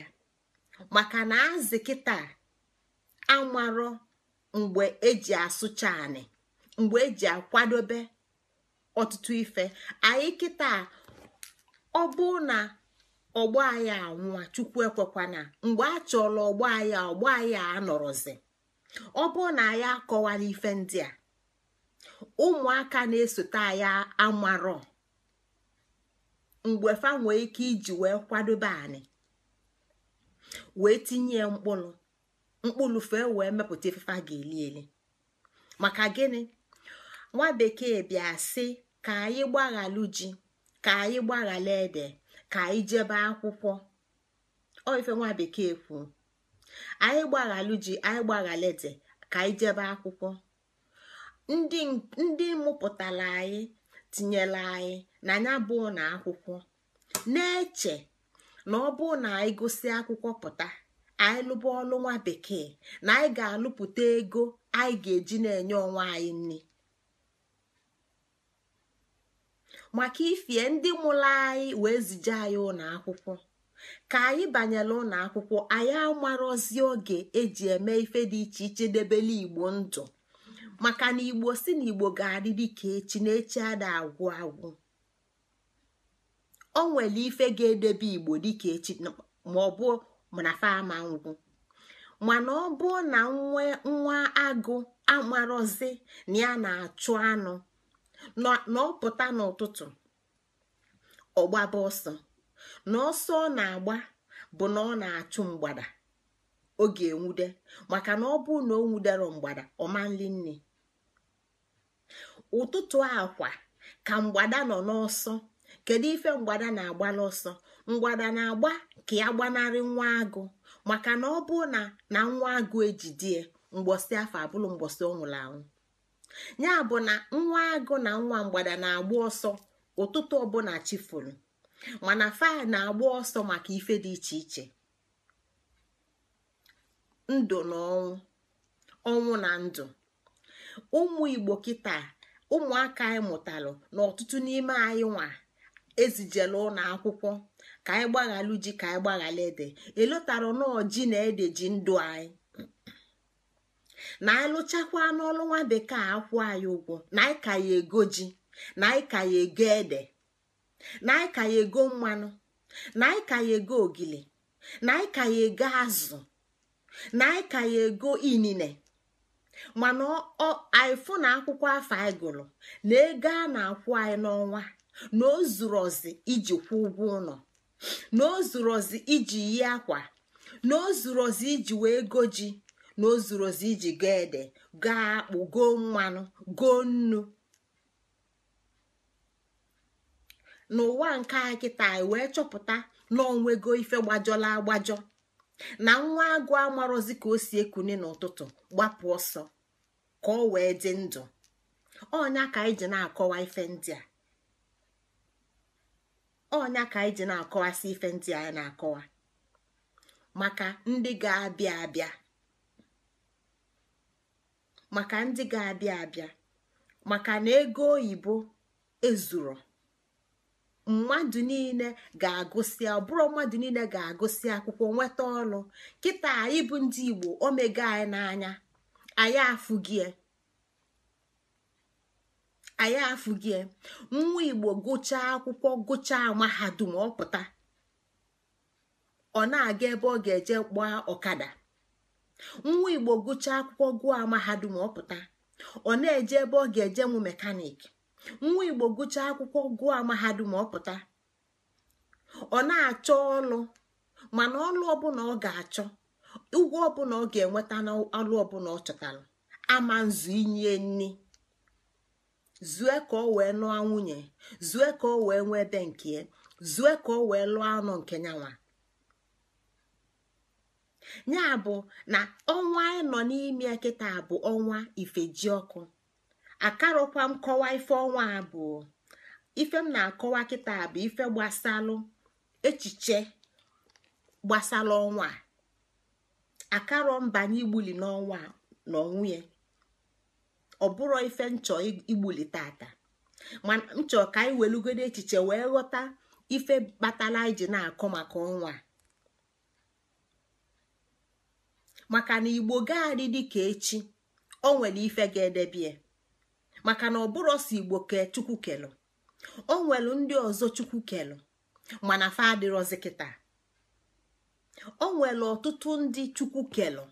maka na azị kịta amarọ mgbe eji asụcha anị mgbe eji akwadobe ọtụtụ ife anyị kịta ọ bụ na ọgbọ anyị anwụa chukwu ekwekwana mgbe a chọrọ ọgbọ anyị ọgbọ anyị anọrọzi ọ bụ na anyị akọwala ife ndị a ụmụaka na-esote anyị amarọ mgbe fa nwee ike iji wee kwadobe anyị wee tinye mkpụrụ mkpụrụ fee wee mepụta ifefe a ga-eli eli maka gịnị nwa bekee bịa sị ka anyị gbaghalụ ji ka anyị gbaghalụ ede ka anyị jebe akwụkwọ ọ ife nwa bekee kwuo anyị gbaghalụ ji anyị gbaghalụ ede ka anyị jebe akwụkwọ ndị mụpụtara anyị tinyere anyị na anya bụ na akwụkwọ na-eche na ọ bụ na anyị gosi akwụkwọ pụta anyị lụba ọlụ nwa bekee na anyị ga-alụpụta ego anyị ga-eji na-enye onwe anyị nri maka ifie ndị mụrụ anyị wee zije anyị ụlọ akwụkwọ ka anyị banyere ụlọ akwụkwọ anyị amarozi oge eji eme ife dị iche iche debele igbo ndụ maka na igbo si na igbo ga-adị ka echi na echi ada agwụ agwụ o nwere ife ga-edebe igbo dịka echi ma ọ bụ mana fama ama mana ọ bụ na nwa agụ amarozi na ya na-achụ anụ na ọ pụta n'ụtụtụ ọgbaba ọsọ na ọsọ ọ na-agba bụ na ọ na-achụ mgbada oge enwude maka na ọ bụ na ọ nwudero mgbada nri nne ụtụtụ akwa ka mgbada nọ n'ọsọ kedu ife mgbada na-agba n'ọsọ mgbada na-agba ka ya gbanarị nwa agụ maka na ọ bụ na na nwa agụ ejidie mgbọsị afọ abụrụ mgbọsị ọ nwụrụ anwụ ya bụ na nwa agụ na nwa mgbada na-agba ọsọ ụtụtụ ọbụla chifuru mana faịl na-agba ọsọ maka ife dị iche iche ndụ na ọnwụ ọnwụ na ndụ ụmụ igbo kịta ụmụaka anyị mụtalụ na ọtụtụ n'ime anyị nwa ezijela ụlọ akwụkwọ ka anyị gbaghalụ ji ka anyị gbaghalụ ede elotara nọọ ji na ede ji ndụ anyị na anyị n'ọlụ nwa bekee akwụ anyị ụgwọ na anyị ka ya ego ji na anyị ka ya ego ede na anyị ka ya ego mmanụ na anyị ka ya ego ogili na anyị ka ya ego azụ na anyị ka ya ego inine mana anyị na akwụkwọ afọ anyị gụrụ na ego a na-akwụ anyị n'ọnwa na o zuru ozi iji kwụ ụgwọ ụlọ na o iji yi akwa na o iji wee go ji na o iji ga ede ga akpụ go mmanụ go nnu n'ụwa nke a kịta e wee chọpụta na onwego ife gbajọla agbajọ na nwa agụ amarozi ka o si ekune n'ụtụtụ gbapụ ọsọ ka ọ wee dị ndụ ọnya ka anyị ji na-akọwa ife ndị a onya ka anyị ji na-akọwasị ife ndị anyị na-akọwa maka ndị ga-abịa abịa maka na ego oyibo ezuro mmadụ niile ga-agụsị ọbụrụ mmadụ niile ga-agụsị akwụkwọ nweta ọrụ kịta anyị bụ ndị igbo omega anyị n'anya anyị afụgie anyị afụgie nwa igbo gụchaa akwụkwọ gụchaa mahadum ọpụta ọ na-aga ebe ọ ga-eje gbaa ọkada nwa igbo gụchaa akwụkwọ gụọ mahadum ọpụta ọ na-eje ebe ọ ga-eje nwụ mekanik nwa igbo gụchaa akwụkwọ gụọ mahadum ọpụta ọ na-achọ ọlụ mana ọlụ ọbụla ọ ga-achọ ụgwọ ọbụla ọ ga-enweta n'ọlụ ọbụla ọ chọtara ama nzu inye nni zue ka o wee lụọ nwunye zue ka o wee nwee ebe nke zue ka o wee lụọ anụ nke nyanwa ya bụ na ọnwa anyị nọ n'ime kịta bụ ọnwa ifeji ọkụ akarụkwa m kọwa ife ọnwa abụọ ife m na-akọwa kịta bụ ife gbasalụ echiche gbasalụ ọnwa akarọ mbanye igbuli n'ọnwa na ọnwụ ya ọ bụrụ ife nchọ igbuli tata ma nchọ ka anyị welugodo echiche wee ghọta ife batala anyị ji na-akọ maka ọnwa maka na igbo gaadị dịka echi o nwere ife ga-edebie maka na ọ bụrụ ọsọ igbo kee chukwu kelụ o nwere ndị ọzọ chukwu kelụ mana fa adịrọzi kịta o nwere ọtụtụ ndị chukwu kelụ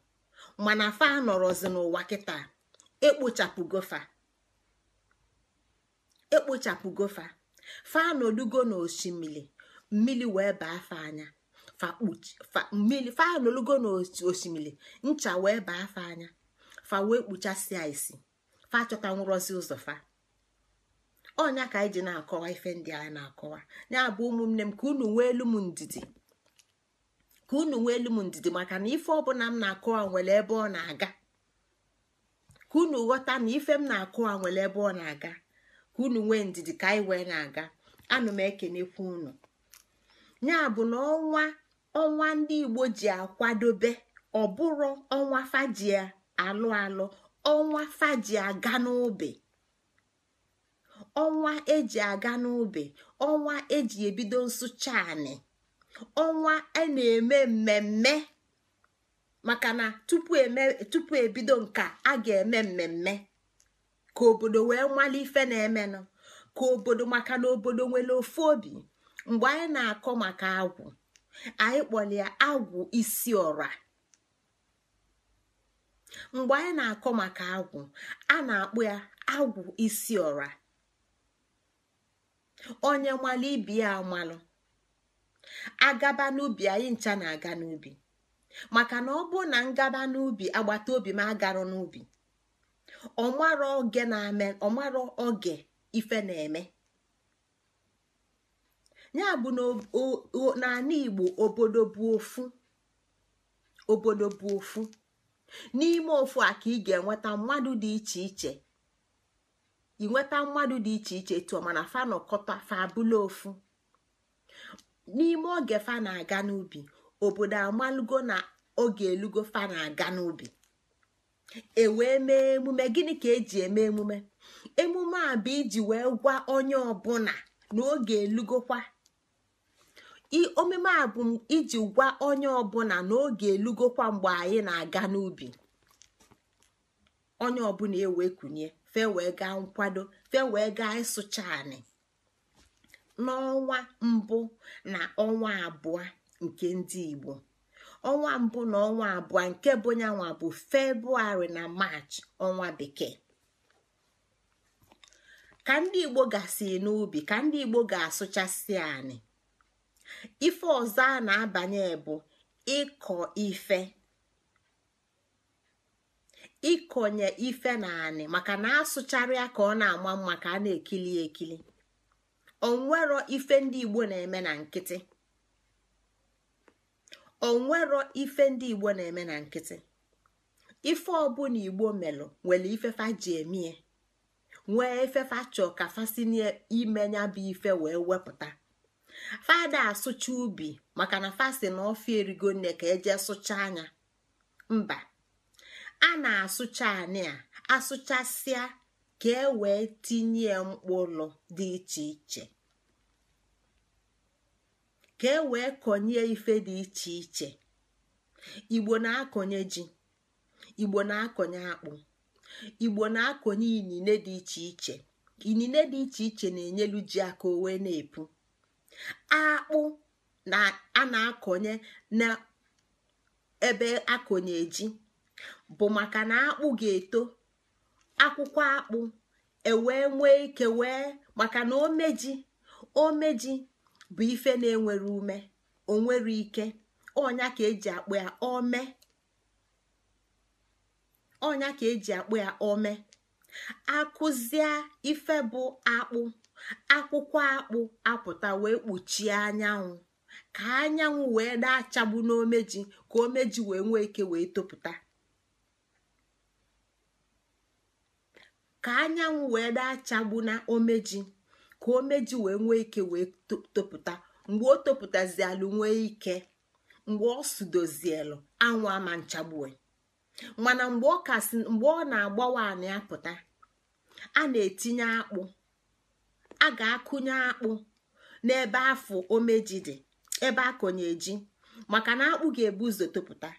mana fa anọrọzi n'ụwa kịta ekpochapụgofa ekpochapụgofa fa na osimiri mmiri wee baa fa anya mmiri fa n'osimiri ncha wee baa fa anya fa wee kpuchasịa isi fa chọta nwụrọzi ụzọ fa ọnya ka anyị na-akọwa ife ndị anyị na-akọwa ya bụ ụmụnne m ka unu nwee elu m ndidi ka unu nwee elu m ndidi maka na ife ọbụla m na-akọwa nwere ebe ọ na-aga ka unu ghọta na ife m na-akụ nwere ebe ọ na-aga ka unu nwee ndidi ka anyị wee na-aga anụ m ekenekwu unu ya bụ na ọnwa ọnwa ndị igbo ji akwadobe ọ bụrụ ọnwa faji alụ alụ ọnwa faji aga n'ubi ọnwa eji aga n'ubi ọnwa eji ebido nsụcha anị ọnwa a e na-eme mmemme maka na tupu ebido nke a ga-eme mmemme ka obodo wee nwala ife na-emenụ ka obodo maka na obodo nwere ofu obi mgbe anyị na-akọ maka agwụ anyị ya agwụ isi ọra mgbe anyị na-akọ maka agwụ a na akpụ ya agwụ isi ọra onye nwale ibi ya amalụ agaba n'ubi anyị ncha na-aga n'ubi maka na ọ bụ na ngaba n'ubi agbata obi m agarụ n'ubi ọmara oge na-eme oge ife na-eme ya bụ n'ala Igbo obodo bụ ofu obodo bụ ofu n'ime ofu a ka ị ga-enweta mmadụ dị iche iche inweta mmadụ dị iche iche tụọ mana fa nọkọta fa abụla ofu n'ime oge fa na-aga n'ubi obodo amalugo na oge elugo fa na-aga n'ubi ewee mee emume gịnị ka eji eme emume emume a bụ iji wee gwa onye ọbụla na oge elugokwa omume a bụ iji gwa onye ọbụla na oge elugokwa mgbe anyị na-aga n'ubi onye ọbụla ewe kunye fe wee gaa nkwado fe wee gaa ịsụcha anị n'ọnwa mbụ na ọnwa abụọ nke ndị igbo ọnwa mbụ na ọnwa abụọ nke bụ nyanwa bụ febrụwarị na march ọnwa bekee ka ndị igbo gasị n'ubi ka ndị igbo ga-asụchasị anyị ife ọzọ a na-abanye bụ ịkọ ife ịkọnye ife na anị maka na asụcharịa ka ọ na-ama mma ka a na-ekili ekili onwero ife ndị igbo na-eme na nkịtị onwero ife ndị igbo na-eme na nkịtị ife ọbụla igbo melụ nwere ifefa ji emie nwee ifefa chọ ka fasini imenya bụ ife wee wepụta fada asụcha ubi maka na fasi na ofi erigo nne ka eje sụcha anya mba a na-asụcha anị a asụchasịa ka e wee tinye mkpụrụ dị iche iche ka e wee kọnye ife dị iche iche igbo na-akọnye ji igbo na-akọnye akpụ igbo na-akọnye inine dị iche iche inine dị iche iche na-enyelu ji aka o wee na-epu akpụ na a na-akọnye na ebe akọnye ji bụ maka na akpụ ga-eto akwụkwọ akpụ ewee nwee ike wee maka na omeji omeji bụ ife na-enwere ume o onwere ike ọnya ka eji akpụ ya ome ọnya ka eji akụzie ife bụ akpụ akwụkwọ akpụ apụta wee kpuchie anyanwụ ka anyanwụ wee na-achagbu n'omeji ka omeji wee nwee ike wee topụta ka anyanwụ wee na-achagbu na omeji ka o meji wee nwee ike wee topụta mgbe o topụtazielu nwee ike mgbe ọ sudozielu anwụ ama nchagbue mana mgbe ọ kasị mgbe ọ na-agbawa anị apụta a na-etinye akpụ a ga-akụnye akpụ n'ebe afọ omeji dị ebe akọnye ji maka na akpụ ga-ebu ụzọ topụta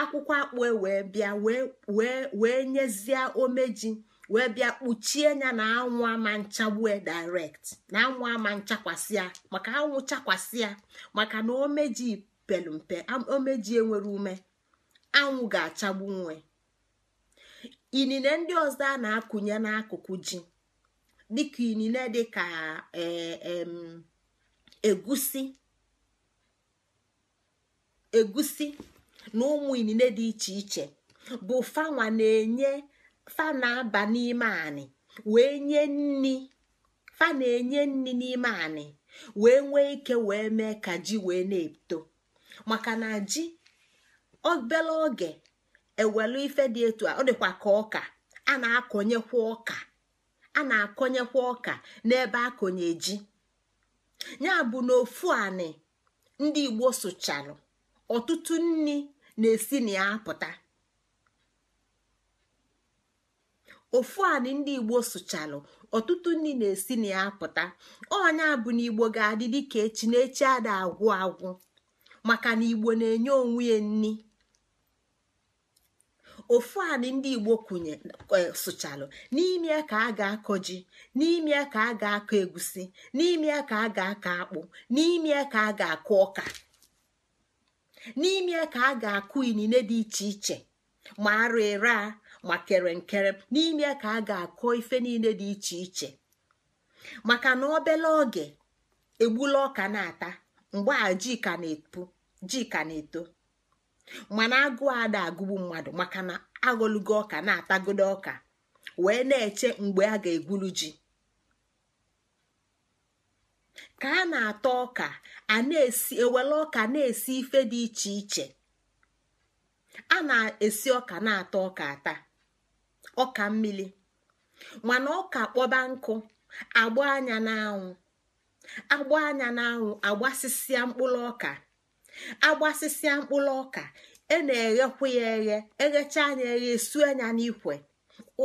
akwụkwọ akpụ e wee bịa wee wee nyezie omeji wee bịa kpuchie ya na anwụ ama nchagbu e direct na anwụ ama nchakwasịa maka anwụ chakwasịa maka na omeji pelumpe omeji enwere ume anwụ ga-achagbu nwe inine ndị ọzọ a na-akụnye n'akụkụ ji dịka inine dịka e, egusi egusi na ụmụ inine dị iche iche bụ fanwa na-enye fa na-aba n'ime anị wee nye nni fa na-enye nni n'ime anị wee nwee ike wee mee ka ji wee na-eto maka na ji obele oge ewelu ife dị etu a ọ dịkwa ka ọka a na-akọnyekwa ọka a na-akọnyekwa ọka n'ebe akọnye ji ya bụ na ofu anị ndị igbo sụchalụ ọtụtụ nni na-esi na ya apụta ofu anị ndị igbo sụchalụ ọtụtụ ndị na-esi na ya pụta onye bụ na ga-adị dịka echi na echi ada agwụ agwụ maka na igbo na-enye onwe ya nni ofu anị ndị igbo kwunye e, sụchalụ n'ime ka aga ga-akọ ji n'ime ka a ga-akọ egusi n'ime ka a ga-akọ akpụ n'ime ka a ga-akọ ọka n'ime ka a ga-akụ inine dị iche iche ma arụ ma kere nkere n'ime ka a ga-akọ ife niile dị iche iche maka na obele oge egbula ọka na-ata mgbe a ji ka na eto mana agụ ada agụgbu mmadụ maka na aghọlugo ọka na-atagodo ọka wee na-eche mgbe a ga-egwuru ji ka a na-ata ọka a na-esi ewele ọka na-esi ife dị iche iche a na-esi ọka na-ata ọka ata ọka mmiri mana ọka kpọba nkụ agba anya n'anwụ agba anya n'anwụ agbasịsịa mkpụrụ ọka agbasịsịa mkpụrụ ọka e na-eghekwu ya eghe eghecha anya eghe esue anya n'ikwe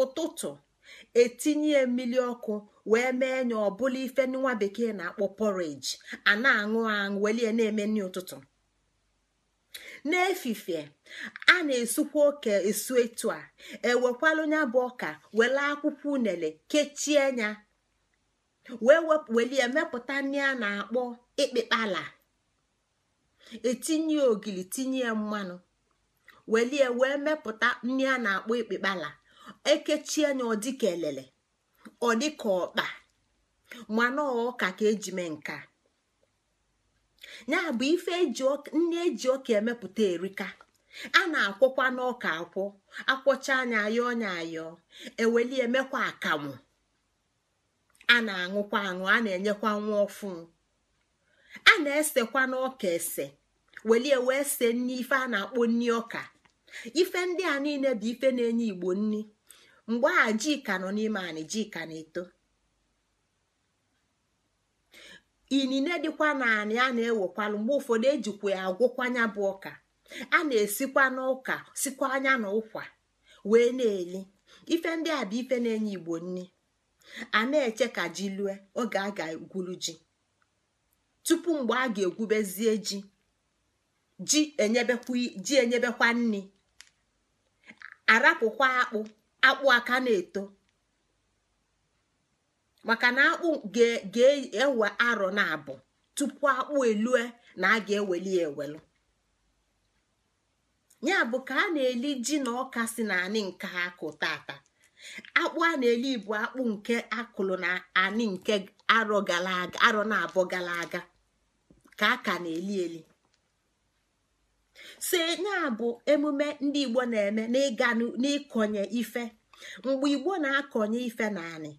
ụtụtụ etinye mmiri ọkụ wee mee nya ọbụla ife nwa bekee na-akpọ porridge a na-aṅụ aṅụ welie na-eme nri n'efifie a na-esukwa oke esu etu a ewekwalụ nya bụ ọka wele akwụkwọ unele kechie nya wee emepụta mepụta nri a na-akpọ ịkpịkpala etinye ogili tinye mmanụ welie wee mepụta nri a na-akpọ ịkpịkpala ekechie nya ọ ka elele ọ dịka ọkpa mana ọka ka eji mee nka ya bụ ife nne eji ọka emepụta erika a na-akwọkwa n'ọka akwọ akwọcha anya ayọ ọnya ayọ eweli emekwa akamụ a na-aṅụkwa aṅụ a na-enyekwa nwa ọfụ a na-esekwa n'ọka ese welie wee se nne ife a na-akpọ nni ọka ife ndị a niile bụ ife na-enye igbo nni mgbe a ji ka nọ n'ime anị ji na-eto inine dịkwa naanị a na-ewekwalu mgbe ụfọdụ ejikwa ya agwụkwanya bụ ọka a na-esikwa n'ụka sikwa anya na ụkwa wee na-eli ife ndị a bụ ife na-enye igbo nri a na-eche ka ji lue oge a ga-egwuru ji tupu mgbe a ga-egwubezie ji ji enyebekwa nni arapụkwa akpụ akpụ aka na-eto maka na akpụ ga-ewe arọ na abụ tupu akpụ elue na a ga-eweli ewelu ya bụ ka a na-eli ji na ọka si na anị nke akụ tata akpụ a na-eli bụ akpụ nke akụlụ na anị nke arọ na abụ gara aga ka a ka na-eli eli so ya bụ emume ndị igbo na-eme n'ịga n'ịkọnye ife mgbe igbo na-akọnye ife na anị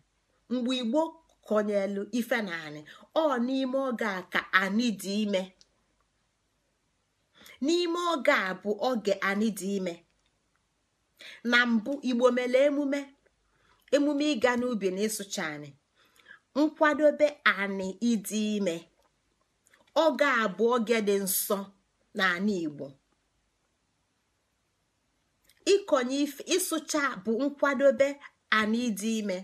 mgbe igbo konyelu ife na anị ọ n'ime oge a ka anị dị ime n'ime oge a bụ oge anị dị ime na mbụ igbo mere emume emume ịga n'ubi na ịsụcha anị nkwadobe anị ịdị ime oge a bụ oge dị nsọ na anị igbo ife ịsụcha bụ nkwadobe anị ịdị ime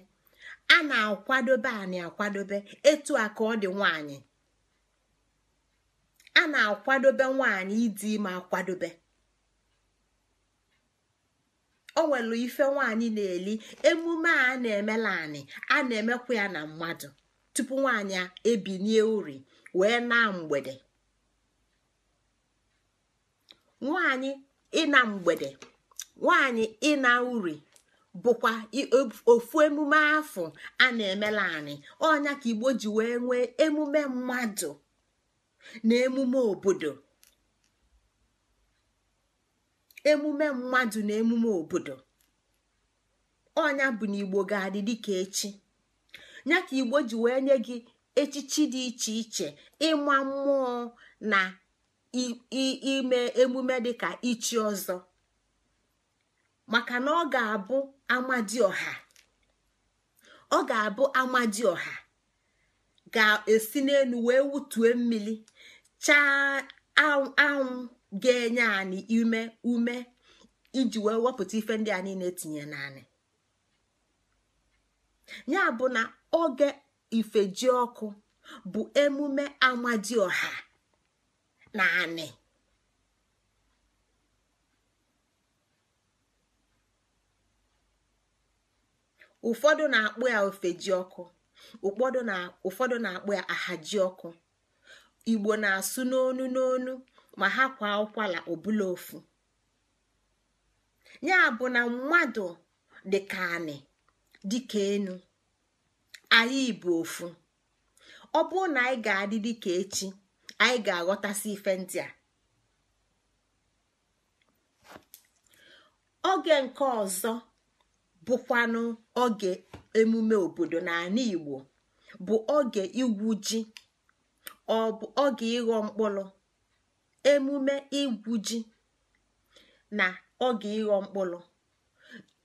a na-akwadobe anyị akwadobe etu a ka ọ dị nwanyị a na-akwadobe nwanyị ịdị ime akwadobe o nwere ife nwanyị na-eli emume a na-emela anyị a na-emekwa ya na mmadụ tupu nwanyị ebinie uri wee na mgbede nwanyị ịna mgbede nwanyị ịna uri bụkwa ofu emume afọ a na-emela anyị ọnya ka igbo ji wee nwee emume mmadụ na emume obodo emume mmadụ na emume obodo ọnya bụ na igbo ga-adị dịka echi ka igbo ji wee nye gị echichi dị iche iche ịma mmụọ na ime emume dịka ichi ọzọ maka na ọ ga-abụ ọha ọ ga-abụ ọha ga-esi n'elu wee wutue mmiri chaa anwụ ga-enye anyị ume ume iji wee wepụta ife ndị a niile tinye naanị ya bụ na oge ji ọkụ bụ emume na naanị. ụfọdụ na-akpụ ya ofe ji ọkụ ụfọdụ na-akpụ ya ahaji ọkụ igbo na-asụ n'onu n'onu ma ha kwa ụkwala ọbụla ofu ya bụ na mmadụ dịka anị dịka enu anyị bụ ofu ọ bụrụ na anyị ga-adị dịka echi anyị ga-aghọtasị ife ndị a oge nke ọzọ bụkwanụ oge emume obodo n'ala igbo bụ oge igwu ji ọ bụ oge ịghọ mkpụrụ emume igwu ji na oge ịghọ mkpụrụ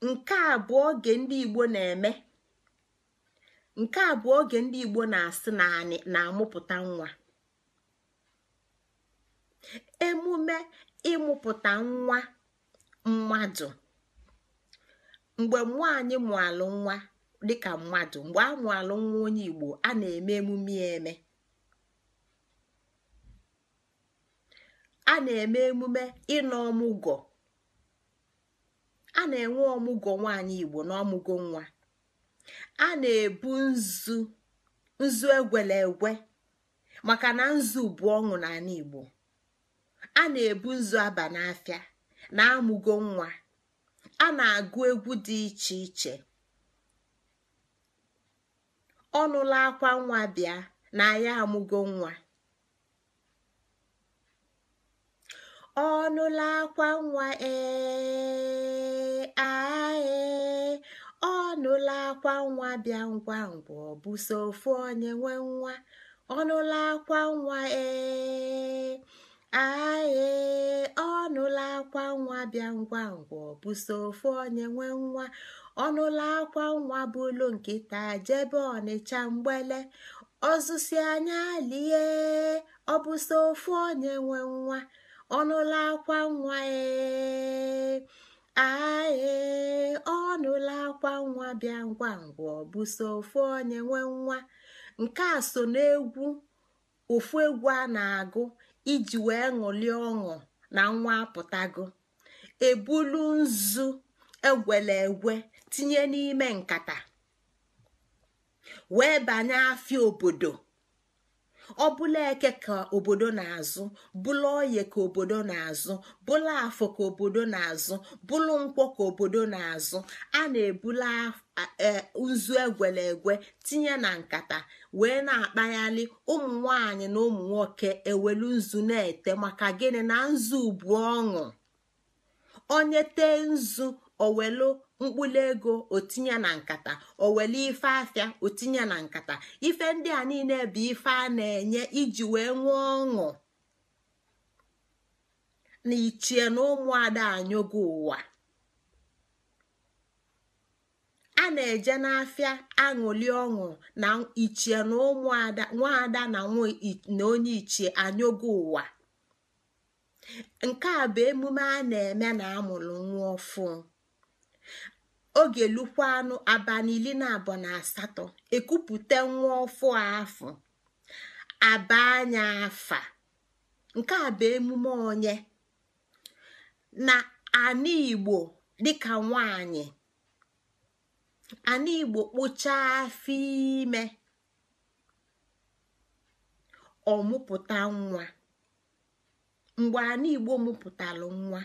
nke a bụ oge ndị igbo na-eme nke a bụ oge ndị igbo na-asị na anyị na-amụpụta nwa emume ịmụpụta nwa mmadụ mgbe mmụọ anyị mụalụ nwa dịka mmadụ mgbe a mụalụ nwa onye igbo a na-eme emume eme a na-eme emume ịnọ ọmụgọ a na-enwe ọmụgọ nwaanyị igbo na nwa a na-ebu nzu nzu egwele egwe maka na nzu bụ ọṅụ n'ala igbo a na-ebu nzu aba n'afịa na amụgo nwa a na-agụ egwu dị iche iche ọnụla akwa nwa bịa na ya amụgo nwa ọnụla akwa nwa ee ae ọnụla akwa nwa bịa ngwa ngwa ọ bụ so ofu onye nwe nwa ọnụla akwa nwa ee aee ọ akwa nwa bịa ngwa ngwa ọbụso ofu onye nwe nwa ọnụla akwa nwa bụlu nkịta jebe ọnịcha mgbele ọzụsi anya lie ọbụso ofu onye nwe nwa ọnụla akwa nwa ee aee ọ akwa nwa bịa ngwa ngwa ọbụso ofu onye nwe nwa nke a so n'egwu ofu egwu a na-agụ iji wee ṅụlie ọṅụ na nwa apụtago ebulu nzu egwele egwe tinye n'ime nkata wee banye afịa obodo ọ bụla eke ka obodo na-azụ bụla oye ka obodo na-azụ bụla afọ ka obodo na-azụ bụlụ nkwọ ka obodo na-azụ a na-ebula e, nzu egwele egwe tinye na nkata wee na-akpaghalị ụmụ nwanyị na ụmụ nwoke ewelu nzu na-ete maka gịnị na nzu bụ ọṅụ onye tee nzu owelu mkpụlụ ego otinye na nkata owele ife afịa otinye na nkata ife ndị a niile bụ ife a na-enye iji wee nwee ọṅụ na ichie na ụmụada anyụgo ụwa a na-eje n'afịa aṅụli ọṅụ na ichie na ụmụada na na onye ichie anyụgo ụwa nke a bụ emume a na-eme na amụrụ nwa ọfụ oge lukwanụ abalị iri na abụọ na asatọ ekupụta nwa ọfụ afọ aba anya afa nke a emume onye na ana igbo dịka nwanyị ana igbo kpụchaa afọ ime ọmụpụta nwa mgbe ana igbo mụpụtara nwa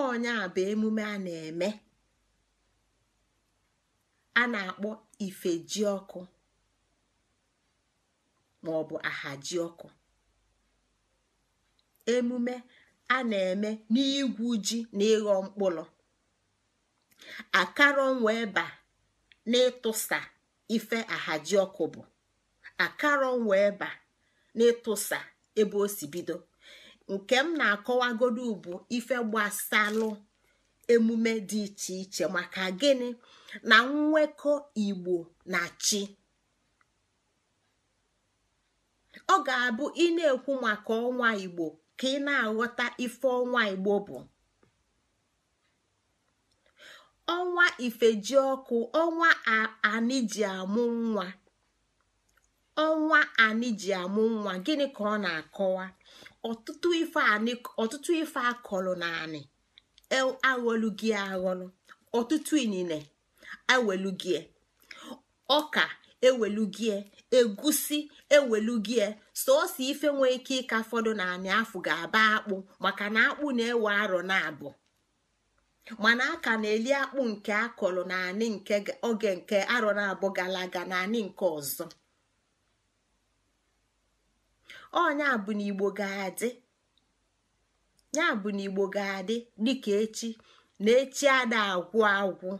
ọnya bụ emume a na-eme a na-akpọ ife ọkụ maọbụ ọkụ emume a na-eme n'igwu ji na ịghọ mkpụrụ akarọ wee ba n'ịtụsa ife ọkụ bụ akarọ wee ba n'ịtụsa ebe o si bido nke m na-akọwagodu bụ ife gbasalụ emume dị iche iche maka gịnị na nwekọ igbo na chi ọ ga-abụ ị na-ekwu maka ọnwa igbo ka ị na-aghọta ife ọnwa igbo bụ ọnwa ifejiọkụ ọnwa amụ nwa ọnwa anịji amụ nwa gịnị ka ọ na-akọwa ọtụtụ ife akọlụ na anị e, aghọlụ gị aghọlụ ọtụtụ inine ewelugie ọka ewelugie egusi ewelugie sọọsọ ife nwee ike ịka fọdụ na anị afọ ga-aba akpụ maka na akpụ na-ewe arọ na abụ mana aka na-eli akpụ nke akọrọ na anị nke oge nke arọ na abụ gara aga na anị nke ọzọ ọnya bụ na igbo ga-adị ya bụ na igbo ga-adị dịka echi na echi ada agwụ agwụ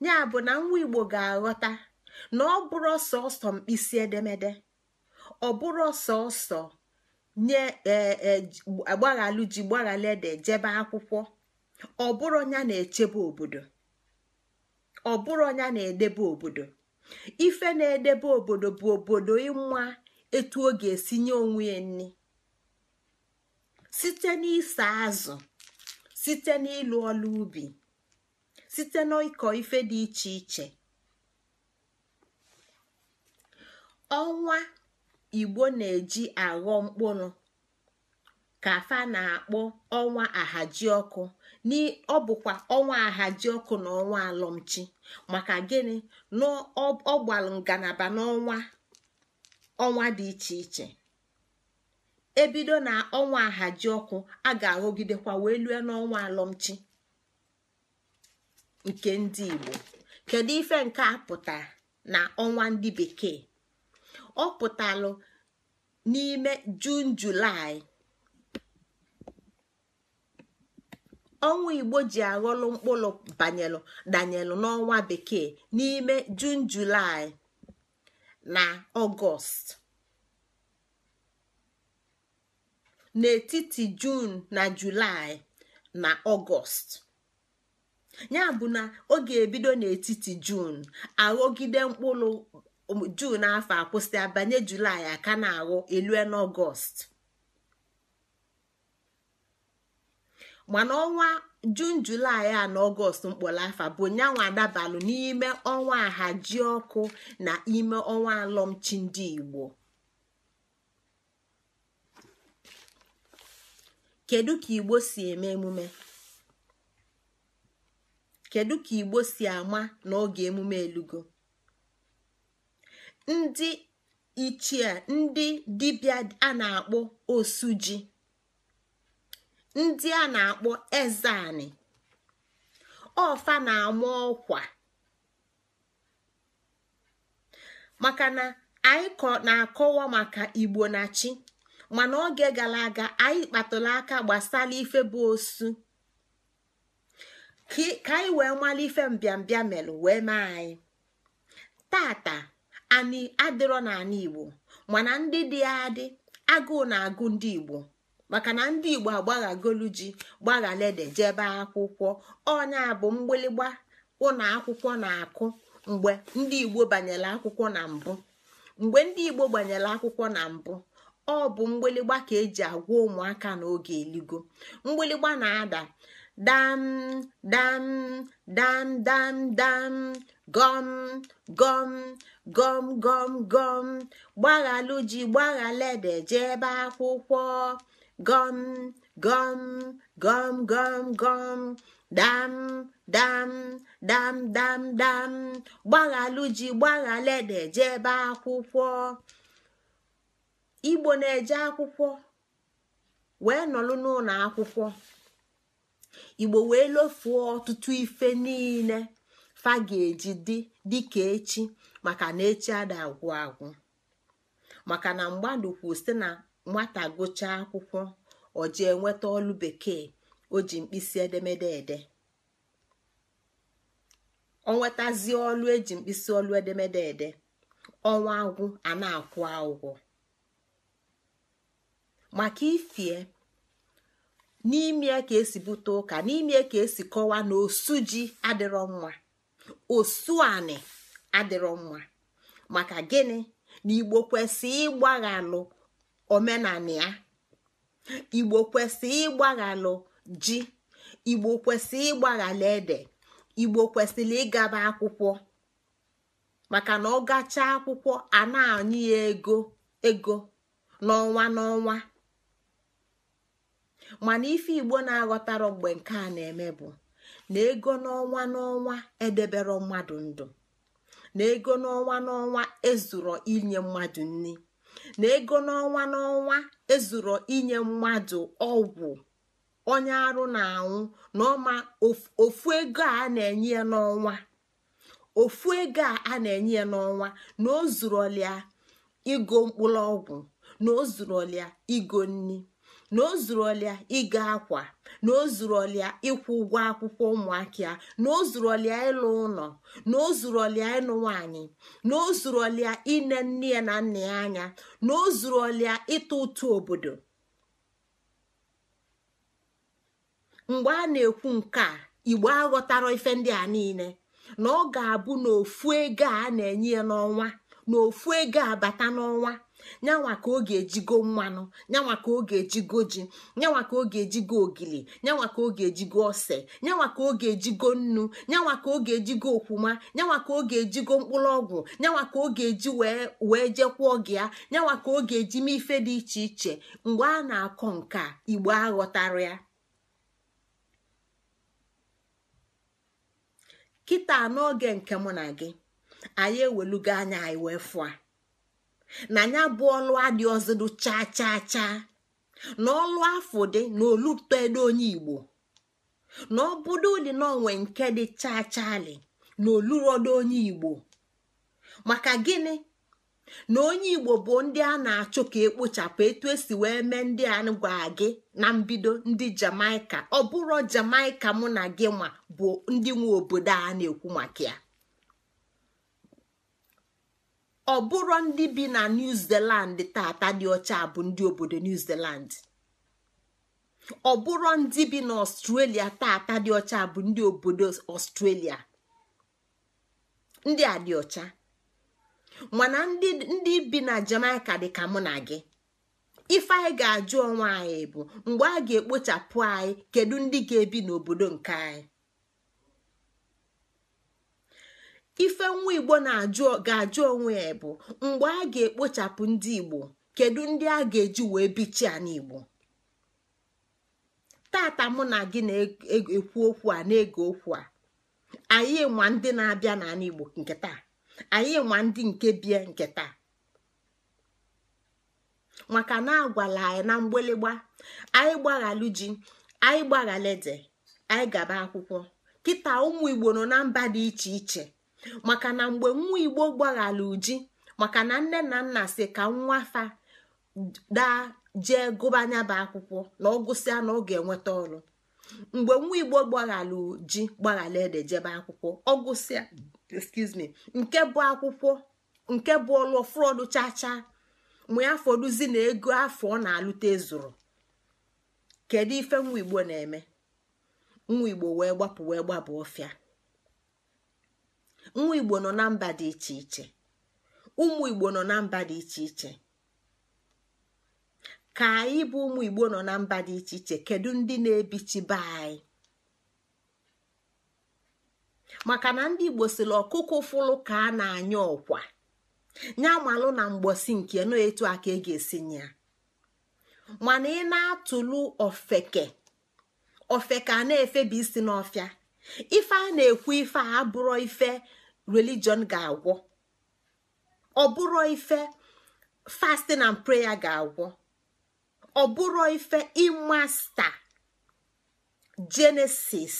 ya bụ na nwa igbo ga-aghọta na ọ bụrụ sọsọ mkpịsị edemede ọ bụrụ sọsọ nye agbaghalụ e, e, ji gbaghalụ ede jebe akwụkwọ ọ bụrụ ya na edebe obodo ife na-edebe obodo bụ obodo ịnwa etu ọ ga-esi nye onwe ya nri site n'ịsa azụ site n'ịlụ ọlụ ubi site n'ịkọ ife dị iche iche ọnwa igbo na-eji aghọ mkpụrụ ka fa na-akpọ ọnwa ahajiọkụ ọkụ ọ bụkwa ọnwa ahaji ọkụ na ọnwa alọmchi maka gịnị na ọ ngalaba n'ọnwa ọnwa dị iche iche ebido na ọnwa ahaji ọkụ a ga-aghọgidekwa wee lue n'ọnwa alọmchi nke ndị igbo kedu ife nke a pụtara na ọnwa ndị bekee ọ pụtalụ n'ime jun julaị ọnwa igbo ji aghọlụ mkpụrụ banyelụ danyelụ n'ọnwa bekee n'ime jun julaị na ọgọst n'etiti jun na julaị na ọgọst ya bụ na ọ ga-ebido n'etiti jun aghọgide mkpụrụ um, jun afọ akwụsị abanye julaị aka na-aghọ elue n'ọgọst mana ọnwa jun julaị a na ọgọst mkpọrọ afọ bụ nyanwa adabalụ n'ime ọnwa ahaji ọkụ na ime ọnwa alọmchi ndị igbo kedu ka igbo si eme emume kedu ka igbo si ama n'oge emume elugo ndị ichie ndị dibia a na-akpọ ji ndị a na-akpọ ezani ọfa na-ama ọkwa maka na anyị na-akọwa maka igbo na chi mana oge gara aga anyị kpatụrụ aka gbasara ife bụ osu ka anyị wee mara ife mbịambịa melụ wee mee anyị tata anyị adịrọ n'ala igbo mana ndị dị adị agụụ na-agụ ndị igbo maka na ndị igbo agbaghagolu ji gbaghalede jebe akwụkwọ ọnya bụ mgbịlịgba ụlọ akwụkwọ na-akụ mgbe ndị igbo banyere akwụkwọ na mbụ mgbe ndị igbo gbanyere akwụkwọ na mbụ ọ bụ mgbịlịgba ka eji agwa ụmụaka n'oge eligo mgbịlịgba na-ada dam dam dam dam dam gọm gọm gọm gọm gọm gbaghalụ ji gbaghalede jebe akwụkwọ gọm gọm gọm gọm gom dam dam dam dam dam gbaghalụ ji gbaghalede jebe akwụkwọ igbo na-eje akwụkwọ wee nọlụ n'ụlọ akwụkwọ igbo wee lofuo ọtụtụ ife niile fa ga-eji dị dịka echi maka na echi ada agwụ agwụ maka na mgbadụ kwụ site na nwata gụchaa akwụkwọ ọjị enweta ọlụ bekee o ji mkpịsị edemede ede ọ nwetazie ọlụ eji mkpịsị ọlụ edemede ede ọnwa agwụ a na-akwụ ụgwọ maka ifie n'ime eke ka esi bute ụka n'ime eke ka esi kọwaa na osu ji adịrọ mma osu anị adịrọ mma maka gịnị na igbo kwesị ịgbaghalụ omenala ya igbo kwesị ịgbaghalụ ji igbo kwesị ịgbaghalụ ede igbo kwesịrị ịgaba akwụkwọ maka na ọ gachaa akwụkwọ a na ya ego ego n'ọnwa n'ọnwa mana ife igbo na-aghọtara mgbe nke a na-eme bụ na ego n'ọnwa n'ọnwa edebere mmadụ ndụ na ego n'ọnwa n'ọnwa ezuro inye mmadụ nri na ego n'ọnwa n'ọnwa ezuro inye mmadụ ọgwụ onye arụ na-anwụ na ọma ofu ego a na-enye n'ọnwa a na-enye ya n'ọnwa na igo mkpụrụ ọgwụ na o igo nri na o zuru ọlịa ịga akwa na o zuru ọlịa ịkwụ ụgwọ akwụkwọ ụmụaka na o zuru ọlịa ịlụ ụlọ na o zuru ọlịa ịlụ nwaanyị na o zuru ọlịa ine nne ya na nna ya anya na o zuru ọlịa ịtụ ụtụ obodo mgbe a na-ekwu nke a igbo aghọtara ife ndị a niile na ọ ga-abụ n'ofu ego a na-enye ya n'ọnwa na ofu ego abata n'ọnwa nyanwa ka ọ ga-ejigo mmanụ nyanwa ka ọ ga-ejigo ji nyanwa ka ọ ga-ejigo ogili nyanwa ka ọ ga-ejigo ose nyanwa ka ọ ga-ejigo nnu nyanwa ka ọ ga-ejigo okwuma nyanwa ka ọ ga-ejigo mkpụrụ ọgwụ nyanwa ka ọ ga-eji wee jekwuo gị ya nyanwa ka ọ ga-eji mee ife dị iche iche mgbe a na-akọ nke igbo aghọtara ya kịta n'oge nke mụ na gị anyị ewelugo anya anyị wee fụa na ya bụ ọlụ adị ọzọdụ chaa chaa chaa na ọlụ afọ dị na olutedo onye igbo na obodo dị n'onwe nke dị chaa chali na olurodo onye igbo maka gini na onye igbo bụ ndi a na-achụ ka ekpochapụ etu esi wee mee ndị a gwa gị na mbido ndi jamaika ọ bụrụ jamaika mụ na gị nwa bụ ndi nwe obodo a na-ekwu maka ya ọ bụrụ ndị bi na new zealand tata dị ọcha bụ ndị obodo new zealand ọ bụrụ ndị bi na ọstrelia tata dị ọcha bụ ndị obodo ọstrelia ndị a dị ọcha mana ndị bi na jamaica dị ka mụ na gị ife anyị ga-ajụ onwe anyị bụ mgbe a ga-ekpochapụ anyị kedu ndị ga-ebi n'obodo nke anyị ife nwa igbo na ga-ajụ onwe ya bụ mgbe a ga-ekpochapụ ndị igbo kedu ndị a ga-eji wee bichia n'igbo tata mụ na gị na-ekwu okwu a na-ege okwu a anyị nwa ndị na-abịa n'ala igbo nke taa anyị nwa ndị nke bie nke taa maka na agwala anyị na mgbịlịgba anyị gbaghalụ ji anyị gbaghala ede anyị gaba akwụkwọ kịta ụmụ igbo nọ na mba dị iche iche maka na mgbe nwa igbo gbaghara uji maka na nne na nna si ka nwa fa daa jee gụbanya bụ akwụkwọ na ọ gụsịa na ọ ga-enweta ọrụ mgbe nwa igbo gbaghalụ ji gbaghara ede jebe akwụkwọ ọ gụsịa me nke bụ akwụkwọ nke bụ ọlụ fụrọdụ chacha mụ ya fọdụzi na ego afọ ọ na-alụta ezuru kedu ife nwa igbo na-eme nwa igbo wee gbapụ wee gbaba ọfịa nwa igbo nọ na mba dị iche iche ụmụ igbo nọ na mba dị iche iche ka anyị bụ ụmụ igbo nọ na mba dị iche iche kedu ndị na-ebichibe anyị maka na ndị igbo sịrị ọkụkọ fụlụ ka a na-anya ọkwa nya malụ na mgbosi nke nọ etu a ka ị e ga-esi ya mana ị na atụlu ofeke ofeke a na-efebi isi n'ọfịa ife a na-ekwu ife a abụrọ ife religion ga-agwọ ọ bụrụ ife fasting and prayer ga-agwọ ọ bụrụ ife imasta genesis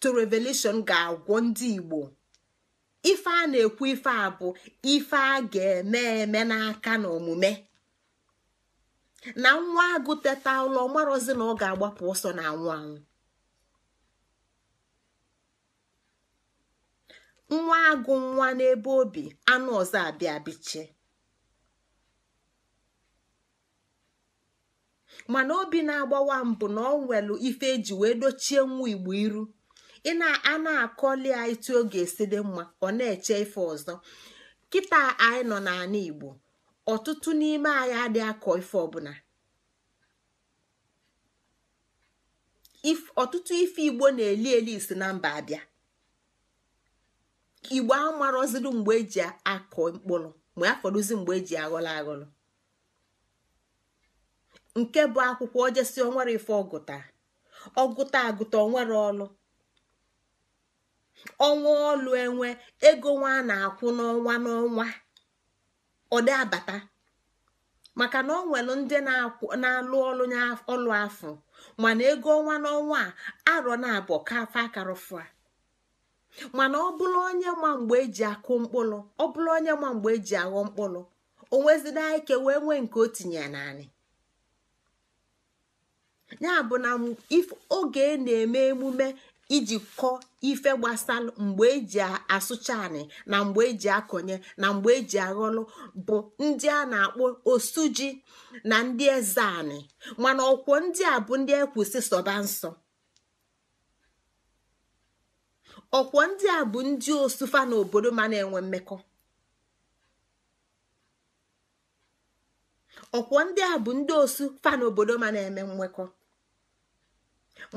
to revelation ga-agwọ ndị igbo ife a na-ekwu ife a bụ ife a ga-eme eme n'aka na omume na nwa agụ teta ụlọ marozi na ọ ga-agbapụ ọsọ na anwụ anwụ nwa agụ nwa n'ebe obi anụ ọzọ abịa mana obi na-agbawa mbụ na ọ nwelu ife eji wee dochie nwa igbo iru ị na-a na-akọli ya etu esi mma ọ na-eche ife ọzọ kịta anyị nọ n'ala igbo ọtụtụ n'ime anyị adị akọ ife ọbụla ọtụtụ ife igbo na-eli eli isi na mba abịa igbo amarọziri mgbe eji akọ mkpụrụ ma afọrụzi mgbe eji aghọrọ aghọrọ nke bụ akwụkwọ ojesi onwere ife ọgụta ọgụta agụta onwere ọlụ ọnwa ọlụ enwe ego nwa a na-akwụ n'ọnwa n'ọnwa ọ dị abata maka na ọ nwere ndị na-alụ ọlụ ọlụ afọ mana ego ọnwa n'ọnwa a arọ na-abụ ka afa mana ọ bụrụ onye ma mgbe eji akụ mkpụrụ ọ bụrụ onye ma mgbe eji aghọ mkpụrụ o wee nwee nke o tinye naanị ya bụ na oge e na-eme emume iji kọọ ife gbasara mgbe eji asụcha anị na mgbe eji akọnye na mgbe eji aghọlụ bụ ndị a na-akpọ osuji na ndị eze anị mana ọkwọ ndị a bụ ndị ekwusi sọba nsọ ọkwọ ndị a bụ ndị osufa n'obodo ma na-enwe mmekọ ọkwọ ndị a bụ ndị osu fa n'obodo ma na-eme mmekọ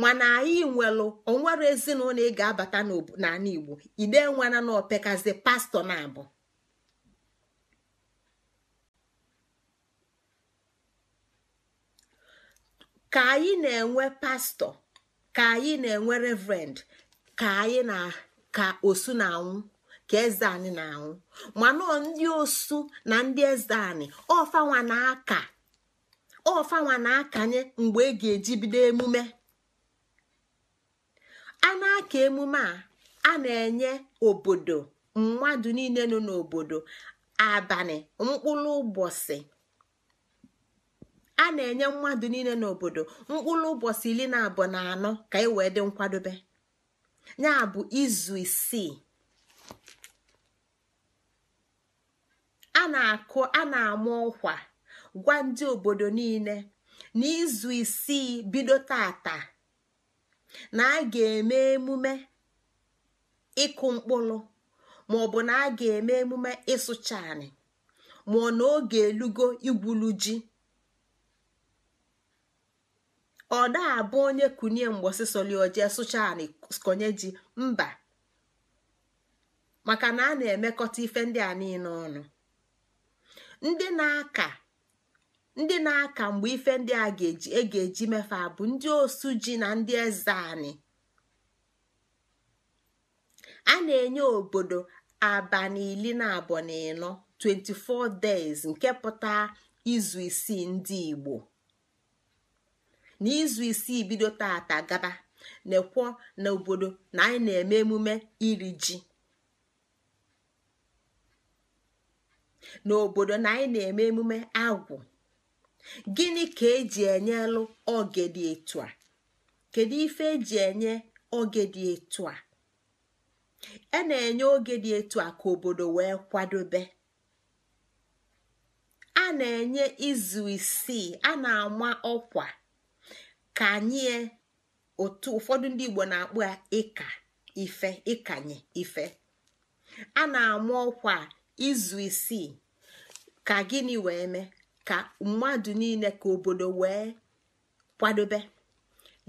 mana anyị nwelụ onwere ezinụlọ ị ga-abata n'ala igbo ide nwana na opekazi pastọ na abụ ka anyị na-enwe pastọ ka anyị na-enwe reverend ka anyị na ka osu na-anwụ ka eze anyị na-anwụ mana ndị osu na ndị eze anyị ọfanwa na-aka ọfanwa na-akanye mgbe e ga-eji bido emume a na-aka emume a a na-enye obodo mmadụ niile nọ n'obodo abalị mkpụrụ ụbọchị a na-enye mmadụ niile n'obodo mkpụrụ ụbọchị iri na abụọ na anọ ka e wee dị nkwadobe ya bụ izu isii a na-akụ a na-ama ọkwa gwa ndị obodo niile n'izu isii bido tata na a ga-eme emume ịkụ mkpụrụ ma ọ bụ na a ga-eme emume ịsụcha anị ma ọ na oge elugo igwulu ji ọ na-abụ onye kunie mgbọsịsọlioje sụcha anị konye ji mba maka na a na-emekọta ife ndị a niile ọnụ ndị na-aka mgbe ife ndị a ga-eji e mefe bụ ndị osu ji na ndị eze anyị a na-enye obodo abalị na abụọ na ịnọ 24 days nke pụta izu isii ndị Igbo n'izu isii bido tata gaba na-ekwo na obodo na anyị eme emume iri ji n'obodo na anyị na-eme emume agwụ gịnị ka eji enyelụ oge dị etu a kedu ife eji enye oge dị etu a a e na-enye oge dị etu a ka obodo wee kwadobe a na-enye izu isii a na-ama ọkwa ka anyị e, otu ụfọdụ ndị igbo na-akpụ ya ịka ife ịkanye ife a na-amụ ọkwa izu isii ka gịnị wee mee ka mmadụ niile ka obodo wee kwadobe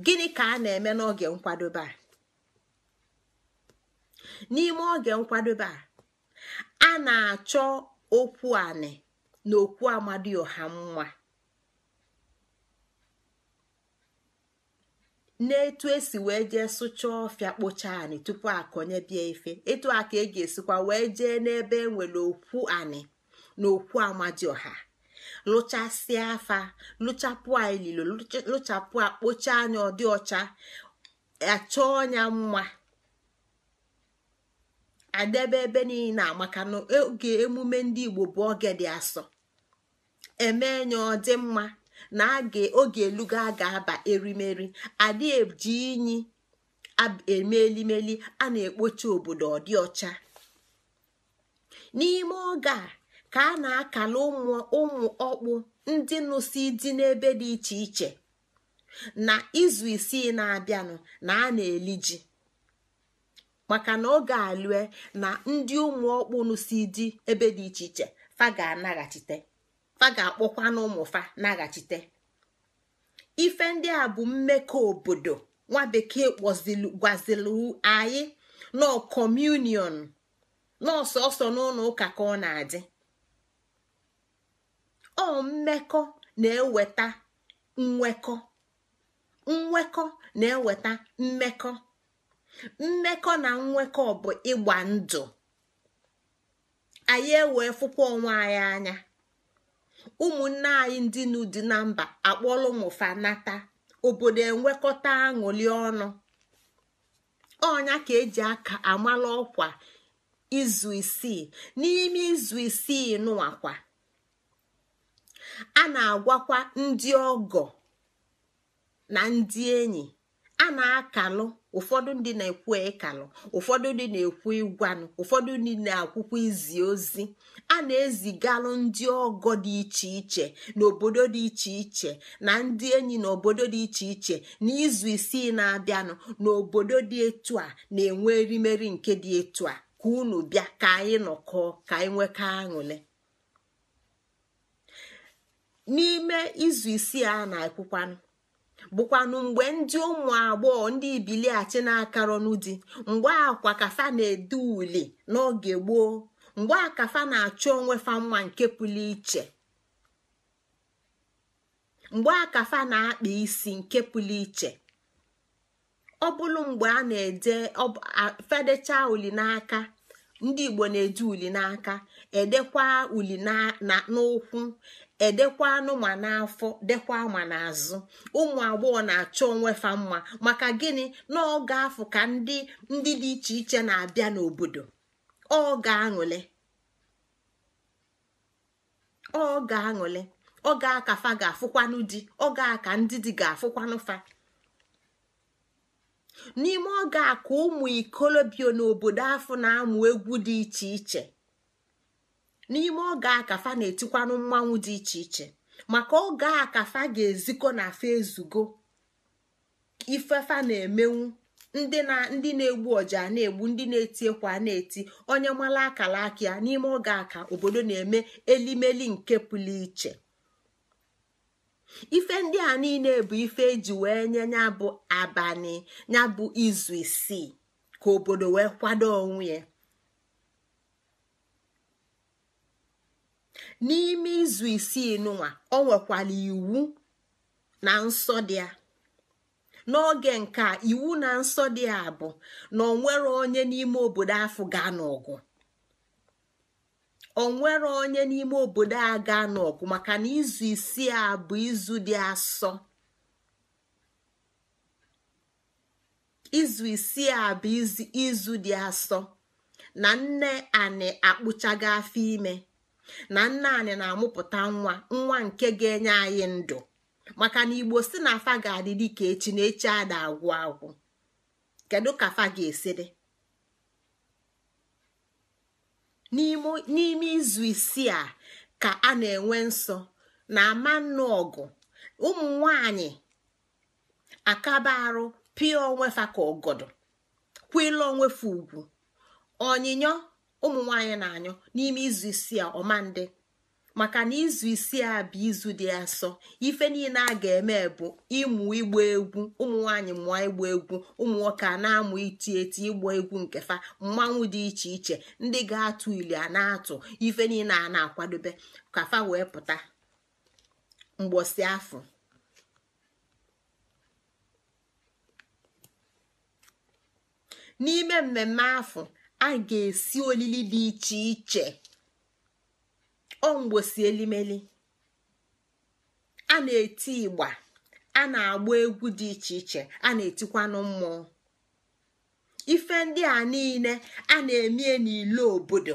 gịnị ka a na-eme n'oge nkwadobe a n'ime oge nkwadobe a a na-achọ okwu anị na okwu amadioha mma na-etu esi wee jee sụchaa ọfịa kpocha anị tupu akọnye bịa ife etu a ka e ga-esikwa wee jee n'ebe enwere okwu anị na okwu amadioha lụchasịa afa lụchapụ ililo lụchapụ akpocha anya ọdị ọcha achọ ọnya mma adebe ebe niile amaka na oge emume ndị igbo bụ oge dị asọ eme ya ọ mma na oge elugo a ga-aba erimeri adị eji inyi eme elimeli a na-ekpocha obodo ọdị ọcha n'ime oge a ka a na-akala ụmụ ọkpụ ndị nụsi dị n'ebe dị iche iche na izu isii na-abịanụ na a na-eli ji maka na oge alue na ndị ụmụ ọkpụ nụsi dị ebe dị iche iche fa ga-anaghachite fa ga-akpọkwa n'ụmụfa naghachite ife ndị a bụ mmekọ obodo nwa bekee anyị nọ kọmunion n'ọsọsọ n'ụlọ ụka ka ọ na-adị ọ mmekọ na-eweta nwekọ nwekọ na-eweta mmekọ mmekọ na nwekọ bụ ịgba ndụ anyị ewee fụkwa onwe anyị anya ụmụnne anyị ndị n'ụdị na mba akpọrọ ụmụfa obodo enwekọta aṅụli ọnụ ọnya ka eji aka amala ọkwa izu isii n'ime izu isii nụwakwa a na-agwakwa ndị ọgọ na ndị enyi a na-akalụ ụfọdụ ndị na-ekwu ịkalụ ụfọdụ ndị na-ekwu ịgwanụ ụfọdụ ndị na-akwụkwọ izi ozi a na-ezigalụ ndị ọgọ dị iche iche n'obodo dị iche iche na ndị enyi n'obodo dị iche iche na izu isii na-abịanụ n'obodo dị etu a na-enwe erimeri nke dị etu a ka unu bịa ka anyị nọkọọ ka anyị nwekọ aṅụle n'ime izu isii a na-ekwukwanụ bụkwanụ mgbe ndị ụmụ agbọghọ ndị ibiliachi na-akarọnụ di mgbe akwa kafa na-ede uli n'oge gboo mgbe akafa na-achọ onwe fa nwa nke pụrụ iche mgbe akafa na-akpa isi nke pụrụ iche ọ bụrụ mgbe a na-ede fedecha uli n'aka ndị igbo na-ede uli n'aka edekwa uli n'ụkwụ edekwa anụma n'afọ dekwa ma n'azụ ụmụ agbọghọ na-achọ onwe fa mma maka gịnị na oge afọ ka ndị ndị dị iche iche na-abịa n'obodo ọ ga-aṅụle ọ ga-aṅụle aka fa ga-afụkwanụ di aka ndị di ga-afụkwanụ fa n'ime oge a ka ụmụ ikolobio n'obodo afọ na-amụ egwu dị iche iche n'ime oge akafa na-etikwanụ mmanwụ dị iche iche maka oge akafa ga-ezikọ na afa ezugo ifefa na-emenwu ndị na ndị na-egbu ọja na-egbu ndị na-eti ekwa na-eti onye mara akara aka n'ime oge aka obodo na-eme elimeli nke pụrụ iche ife ndị a niile bụ ife eji wee nye ya bụ abalị ya bụ izu isii ka obodo wee kwado onwe ya n'ime izu isii n'ụwa ọ nwekwara iwu na nsọ dị n'oge nke iwu na nsọ dị ya bụ na onwere onye n'ime obodo afọ gaa n'ọgụ onwere onye n'ime obodo a gaa n'ọgụ maka na izu isii a bụ izu dị asọ izu isii a bụ izu dị asọ na nne anị akpụchago afọ ime na nna anyị na-amụpụta nwa nwa nke ga-enye anyị ndụ maka na igbo si na afa ga-adị ka echi na echi ada agwụ agwụ kedu ka afa ga-esi n'ime izu isii a ka a na-enwe nsọ na ama nnụ ọgụ ụmụ nwanyị akaba arụ pịa onwefa ka ọgọdọ kwila onwefa ugwu onyinyo ụmụ nwaanyị na-anyụ n'ime izu isii a ọmandị maka na izu isii a bụ izu dị asọ ife niile a ga-eme bụ ịmụ ịgba egwu ụmụ nwaanyị mụọ ịgba egwu ụmụ nwoke a na-amụ iti eti ịgba egwu nke fa mmanwụ dị iche iche ndị ga-atụ ili a na-atụ ife niile a na-akwadobe ka fa wee pụta mgbọsị afọ n'ime mmemme afọ a ga-esi olili dị iche iche ọ elimeli a na-eti igba a na-agba egwu dị iche iche a na-etikwanụ mmụọ ife ndị a niile a na-emie n'ilo obodo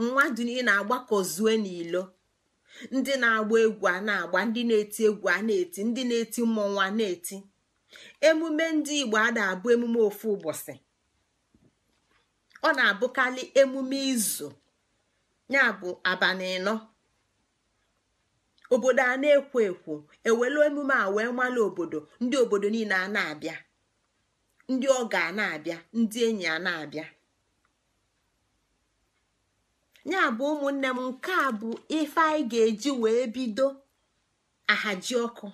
mmadụ niile na-agbakọzue n'ilo ndị na-agba egwu a na-agba ndị na-eti egwu a na-eti ndị na-eti mmọnwụ a na-eti emume ndị Igbo a na-abụ emume ofu ụbọchị ọ na-abụkarị emume izu ya bụ abalị ịnọ obodo a na-ekwo ekwo ewelu emume a wee obodo ndị obodo niile a na-abịa ndị ọga a na-abịa ndị enyi a na-abịa ya bụ ụmụnne m nke a bụ ife anyị ga-eji wee bido ahaji a bụ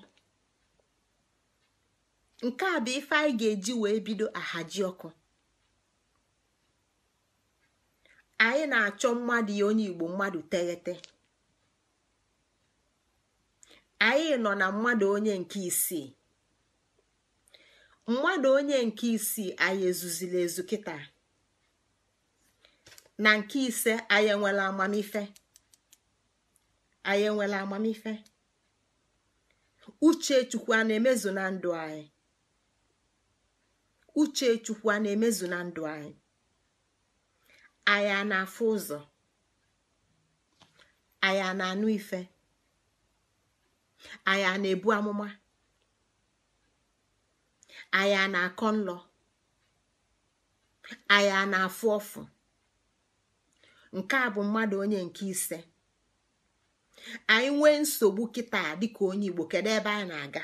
ga-eji wee bido ahaji ọkụ anyị na-achọ mmadụ ya onye igbo mmadụ teghete anyị nọ na mmadụ onye nke isii mmadụ onye nke isii anyị ezuzila ezu kịta na nke ise anyị enwela amamife anyị enwela amamife uchechukwu a na-emezu na ndụ anyị a na-emezu na ndụ anyị anya na-afụ ụzọ anya na-anụ ife na-ebu amụma anya na-akọ nlọ anya na-afụ ọfụ nke a bụ mmadụ onye nke ise anyị nwee nsogbu kịta dịka onye Igbo kedu ebe anyị na-aga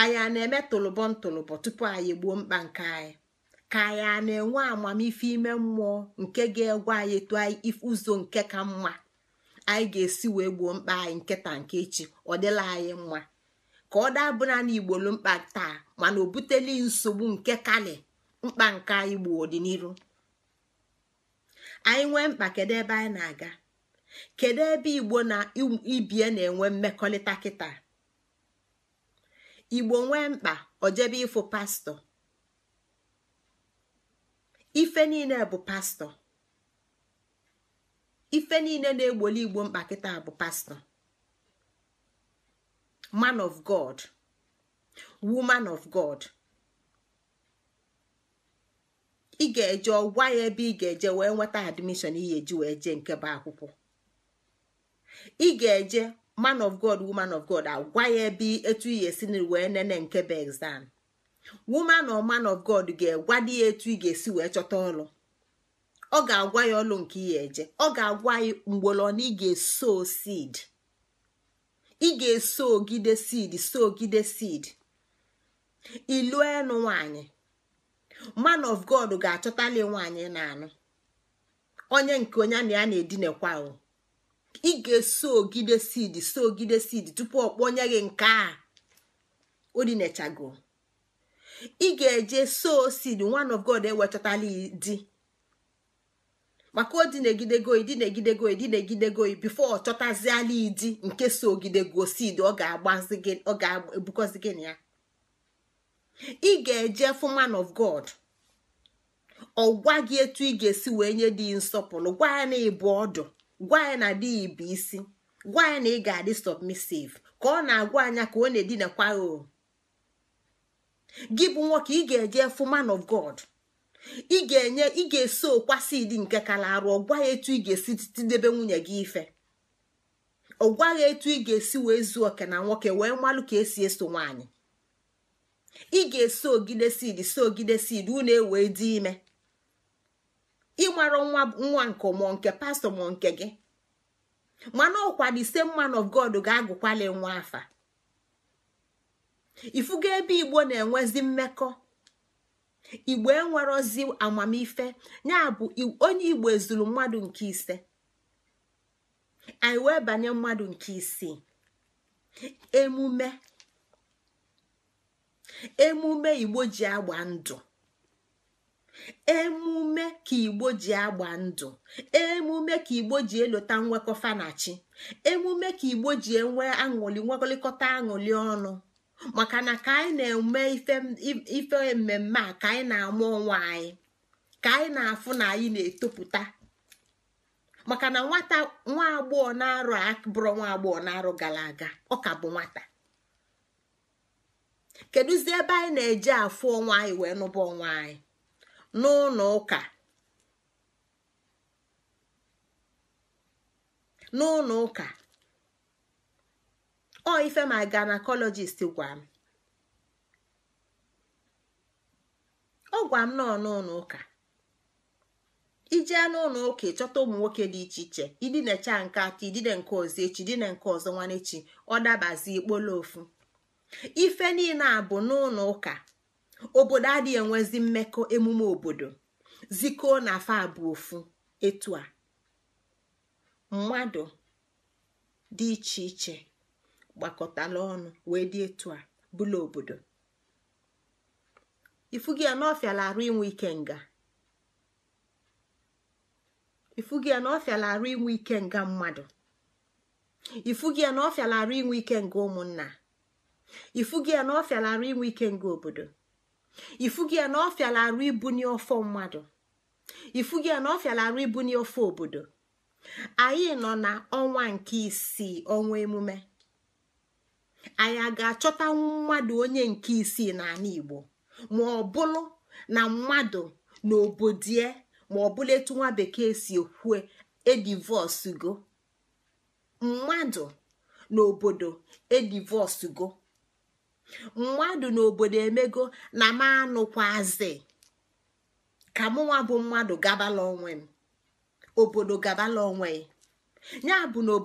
anyị a na-eme tụlụbọ ntụlụbọ tupu anyị gbuo mkpa nke anyị ka anyị a na-enwe amamife ime mmụọ nke ga egwu anyị tụọ ụzọ nke ka mma anyị ga-esi wee gbuo mkpa anyị nkịta nke echi ọ dịla anyị mma ka ọ dabụla na igbolu mkpa taa mana o buteli nsogbu nke kale mkpa nke anyị gbuo ọdịnihu anyị nwee mkpa kedu ebe anyị na-aga kedu ebe igbo na ibie na-enwe mmekọrịta kịta igbo nwee mkpa ojebe ịfụ pastọ ife niile bụ pastọ ife niile na-egboli igbo mkpa kịta bụ pastọ man of god woman of god ị ga-eje ọgwa ya ebe ị ga-eje wee nweta admishọn ihe eji wee jee nke bụ akwụkwọ ị ga-eje man of god woman of god agwa ya ebe etu ihe esi wee nene nke bụ exam woman or man of god ga di ya etu ị ga-esi wee chọta ọlụ ọ ga-agwa ya ọlụ nke ihe eje ọ ga-agwa ya mgbolọ na ị ga-eso seed ị ga-eso ogide seed so ogide seed ilu enu nwanyị man of god ga-achọtali nwanyị na anụ onye nke onye na ya na-edinekwa ị ga-eso ogide seed so ogide seed tupu ọ kpọnye gị nke a odinechago ị ga-eje so seed one of god ewechatala di maka odinegidego idinegidego idinegidego bifo ọ chọtaziala idi nke so ogidego seed ọ ga-agbazi gị ya ị ga-eje fụ man of god ọ gwa gị etu ị ga-esi wee nye dị nsọpụrụ gwa ya na ịbụ ọdụ gwa ya na di bụ isi gwa ya na ị ga-adị submissive ka ọ na-agwa anya ka ọ na-edinakwa o gị bụ nwoke ị ga-eje fụ of god ị ga-enye ị ga-esi okwasi dị nke kala arụ ọgwa ya etu ị ga-esi tidebe nwunye gị ife ọgwa ya etu ị ga-esi wee zuo oke na nwoke wee malụ ka esi eso nwaanyị ị ga-esi ogide sid si ogide sid unu ewee dị ime ịmara nwa nwa nke mụọ nke pastọ mụọ nke gị mana ọkwa the same man of God ga-agụkwali nwa afa ifugo ebe igbo na-enwezi mmekọ igbo enwerozi amamife ya bụ onye igbo ezuru mmadụ nke ise anyị wee banye mmadụ nke isii emume emume igbo ji agba ndụ emume ka igbo ji agba ndụ emume ka igbo ji elota nwekọfanachi emume ka igbo ji enwe aṅụli nwekọlịkọta aṅụli ọnụ maka na ka anyị na-eme ife mmemme a ka anyị na-ama ọnwa anyị ka anyị na-afụ na anyị na-etopụta maka na nwata nwa agbọghọ na-arụ bụrụ nwa agbọghọ na-arụ gara aga ọ ka bụ nwata kedụzi ebe anyị na eji afụ ọnwa anyị wee nụba ọnwa anyị n'ụlọ ụka n'ụlọ ụka ọ ife ma gynecologist gwa m ọ gwa m nọ n'ụlọ ụka ijee n'ụlọ ụka ịchọta ụmụ nwoke dị iche iche idinecha nke atọ idine nke ọzọ echi idine nke ọzọ nwanechi ọ dabazi ikpolo ofu ife niile a bụ n'ụlọ ụka obodo adịghị enwezi mmekọ emume obodo zikoo na afọ abụọ ofu etu a mmadụ dị iche iche gbakọtala ọnụ wee dị etu a bụla obodo ifu gị na ọfịala arụ inwe ike nga arụ inwe ike nga mmadụ ifu gị na ọfịala arụ inwe ike nga ụmụnna ifu gị na ọfịala arụ inwe ike nga obodo ifugi ya na ọfịala arụ ibunye ọfọ mmadụ ifugi ya na ọfịala arụ ibunye ọfọ obodo anyị nọ na ọnwa nke isii ọnwa emume anyị a ga-achọta mmadụ onye nke isii n'ala Igbo ma ọ bụrụ na mmadụ na obodie ma ọ bụla etu nwa bekee si ekwue edivọsgo mmadụ na obodo edivọsgo mmadụ n'obodo emego na m anụkwazi ka mụnwa bụ mmadụ gabala onwe m obodo gabala onwe ya bụ n'obodo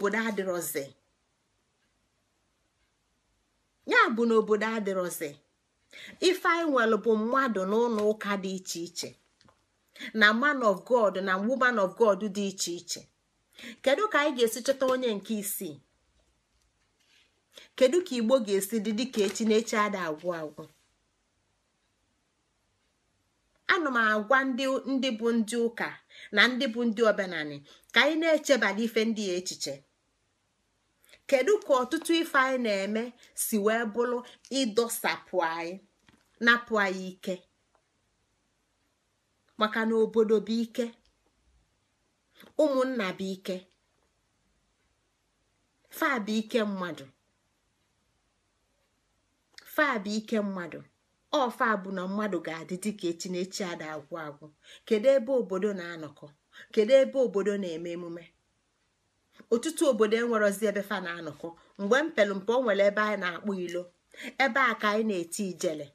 obodo adịrọzi nwere bụ mmadụ n'ụlọ ụka dị iche iche na man of god na woman of god dị iche iche kedu ka anyị ga-esi chọta onye nke isii kedu ka igbo ga-esi dị dịka echi na echi ada agwụ agwụ ana m agwa ndị bụ ndị ụka na ndị bụ ndị omenani ka anyị na-echebala ife ndị ya echiche kedu ka ọtụtụ ife anyị na-eme si wee bụrụ ịdọsapụ anyị napụ anyị ike maka na obodo bụ ike ụmụnna bụ fa bụ ike mmadụ faa bụ ike mmadụ ọfa bụ na mmadụ ga-adị dịka echinechi ada agwụ agwụ kedu ebe obodo na-anọkọ kedu ebe obodo na-eme emume ọtụtụ obodo enwerozi ebe fa na-anọkọ mgbe mpelụmpe o nwere ebe anyị na-akpụ ilo ebe a ka anyị na-eti ijele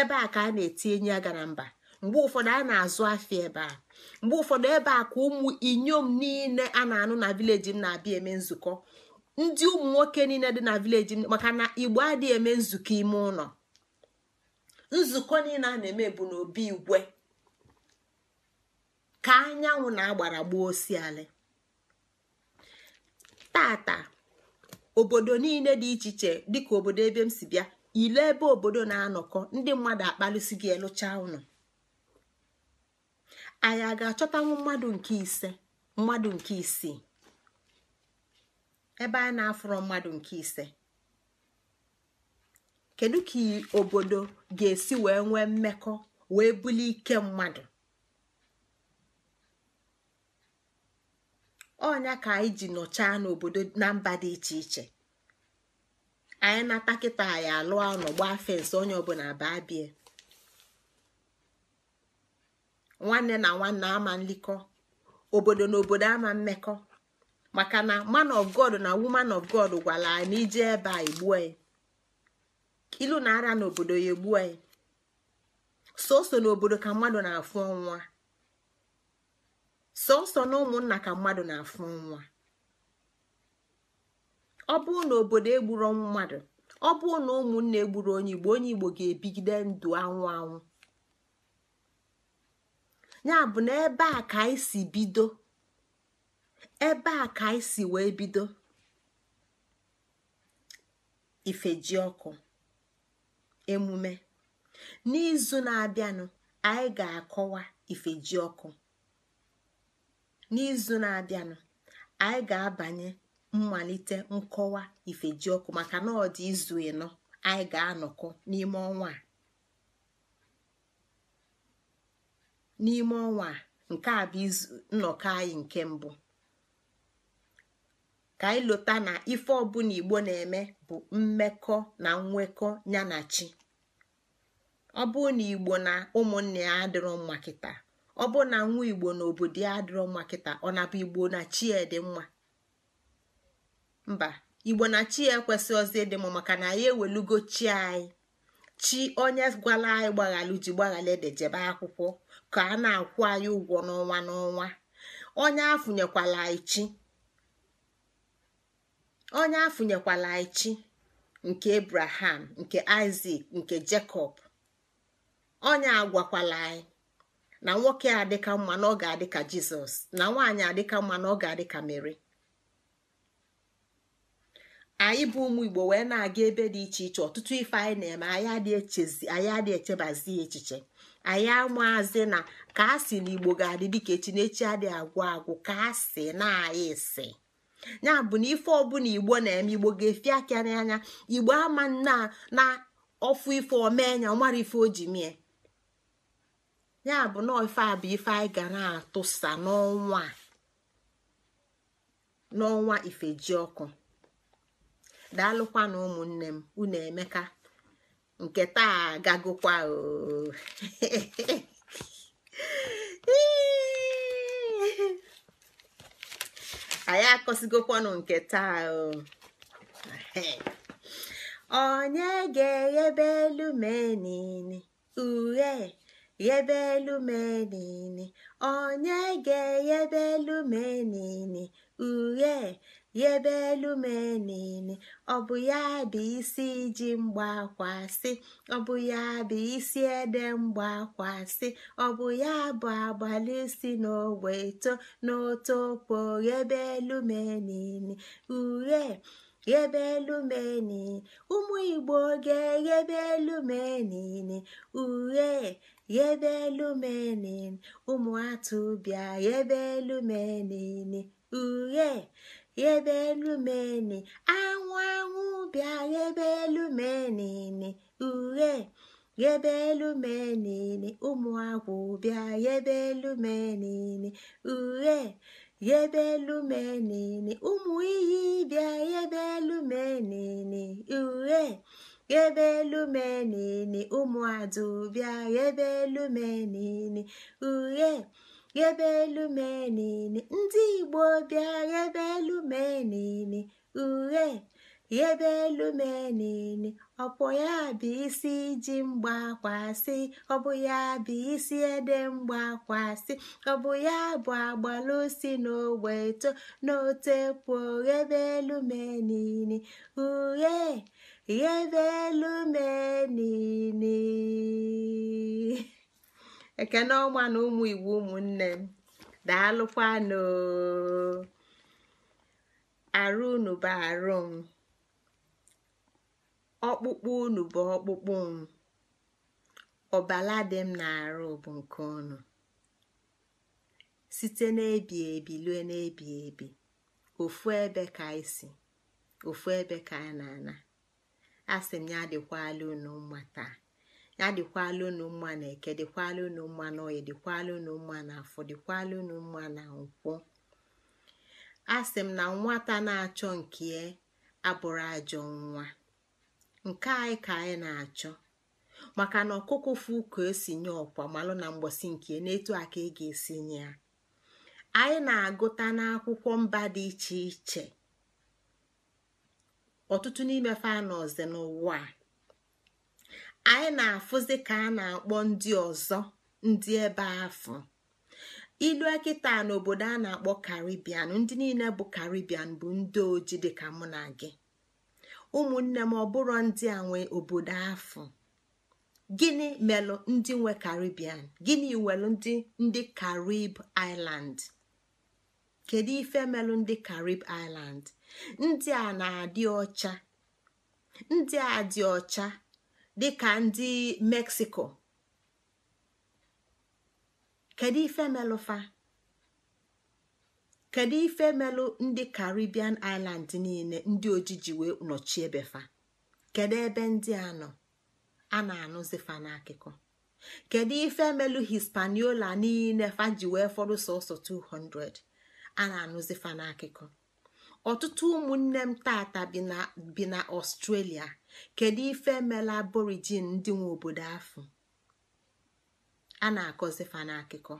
ebe a ka a na-eti enyi aga na mba mgbe ụfọdụ a na-azụ afịa ebe a mgbe ụfọdụ ebe a ka ụmụ inyom niile a na-anụ na vileji m na-abịa eme nzukọ ndị ụmụ nwoke niile dị na vileji maka na igbo adịghị eme nzukọ ime ụlọ nzukọ niile a na-eme bụ n'obi igwe ka anyanwụ na-agbara gbuo Taa tata obodo niile dị iche iche dịka obodo ebe m si bịa ile ebe obodo na-anọkọ ndị mmadụ akpalụsi gị elụcha ụnụ anyị a ga-achọtanwu mmadụ nke ise mmadụ nke isii ebe a na-afụrọ mmadụ nke ise kedu ka obodo ga-esi wee nwee mmekọ wee bulie ike mmadụ ọnya ka anyị ji nọchaa n'obodo na mba dị iche iche anyị nata kịta anyị alụọ nọgba fensị onye ọbụla baa bie nwanne na nwanne ama nlikọ obodo na obodo ama mmekọ maka na man of god na woman of god gwara anyị na ije ebe a egbuo anyị ilu na ara n'obodo ya egbuo anyị Sọọsọ n'obodo ka mmadụ na-afụ nwa. Sọọsọ na ụmụnna ka mmadụ na-afụ nwa. ọ bụrụ na obodo egburu mmadụ ọ bụrụ na ụmụnna egburu onye igbo onye igbo ga-ebigide ndụ anwụ anwụ ya bụ na ebe a ka anyị si bido ebe a ka anyị si wee bido ifeji ọkụ emume n'izu na-abịanụ anyị ga-akọwa ifeji ọkụ n'izu na-abịanụ anyị ga-abanye mmalite nkọwa ifeji ọkụ maka na ọ dị izu ịnọ anyị ga-anọkọ n'ime ọnwa a n'ime ọnwa a nke a bụ nnọkọ anyị nke mbụ ka anyị lota na ife ọbụla igbo na-eme bụ mmekọ na nwekọ ya na chi ọ bụ na igbo na ụmụnne ya adịrọ mma kịta ọ bụ na nwa igbo na obodo ya adịrọ mma kịta ọ na bụ igbo na chi dị mma mba igbo na chi ya ekwesị ozi ịdị mma maka na anyị ewelugo chi anyị chi onye gwala anyị gbaghalụ ji gbaghala ede jebe akwụkwọ ka a na-akwụ anyị ụgwọ n'ọnwa n'ọnwa onye afụnyekwala anyị chi onye afụnyekwala chi nke abraham nke isak nke jacob onye agwakwala anyị na nwoke adịka mma na ọ ga-adị ka jizọs na nwaanyị adịka mma na ọ ga-adị ka mere anyị bụ ụmụ igbo wee na-aga ebe dị iche iche ọtụtụ ife anyị na-eme anyị adị echebazi echiche anyị amaazi na ka a sị na igbo ga-adị dịka echi na echi adịghị agwụ agwụ ka a na anyị si ya bụ na ife ọbụla igbo na-eme igbo ga-efi aka n'anya igbo ama na ọfụ ife omee nya ọmara ife oji mie ya bụ na ife a bụ ife anyị ga na-atụsa n'ọnwa n'ọnwa ifejiọkụ daalụkwa na ụmụnne m unu emeka nke taa gagokwa oo <laughs> anyị akọsigokwanụ nke taa onye ga-eghebe elu menini uhe ghebe elu menini onye ga-eghebe elu menini uhe yebe elu m ọ bụ ya bụ isi iji mgbakwasị ọ bụ ya bụ isi ede mgbakwasị ọ bụ ya bụ agbalisi si n'ogbe eto n'otokpo ghebe elu m ghebe elu ụmụ igbo ga-eghebe elu m enene ghebe elu ụmụ atụ ghebe elu m yebe elu meni anwụ anwụ bịa ghebe elu menini uhe yebe elu menini ụmụ agwụ bịa yebe elu menini uhe yebe elu menini ụmụ iyi bịa yebe elu menini uhe yebe elu menini ụmụ adụ bịa yebe elu menini uhe ghebe elu ndị igbo bịa ghebe elu mee niile uhe elu mee niile ọpụ ya bụ isi ji mgbakwasị ọbụ ya bụ isi ede mgbakwasị ọbụ ya bụ agbalusi n'ogbe eto n'ote pụọ ghebe elu niile uhe ghebe elu mee ekene ọma na ụmụ iwu ụmụnne m daalụkwanụ arụ unu bụ arụ m ọkpụkpụ unu bụ ọkpụkpụ m ọbala dị m na-arụ bụ nke unu site n'ebi ebi lue n'ebi ebi ofu ebe ka anyị ofu ebe ka a na-ana asị m ya alụ unu mma taa adịkwala dịkwala unu mma na eke dịkwala unu mma na oyi dịkwala unu mma na afọ dịkwala unu mma na nkwụ a sị m na nwata na-achọ nke ya e abụrụ ajọ nwa nke anyị ka anyị na-achọ maka na ọkụkụ fu ka esi nye ọkwa malụ na mgbọsi nke n'etu a ka ị e ga-esi nye ya anyị na-agụta n'akwụkwọ mba dị iche iche ọtụtụ n'ime fanọzi n'ụwa a anyị na-afụzi ka a na-akpọ ndị ọzọ ndị ebe afọ ilue kịta n'obodo a na-akpọ karibian ndị niile bụ karibian bụ ndị oji dịka mụ na gị ụmụnne m ọbụrụ ndị a nwe obodo afọ gịnị melụ ndị nwe karibian gịnị welụ ndị ndị karib island kedu ife melụ ndị karib island ndị a na-adị ọcha ndị a dị ọcha dịka ndị meksiko kedu ife melụfa kedu ife melụ ndị caribbean island niile ndị ojiji wee nọchie befa kedu ebe ndị a nọ a na-anụzifa n'akụkọ kedu ife melụ hispaniola niile fa ji wee fọdụ sọsọ 200 a na-anụzifa n'akụkọ ọtụtụ ụmụnne m taata bi na ọstrelia kedu ife emela aborigin ndị nwe obodo afọ a na-akọzi fa n'akụkọ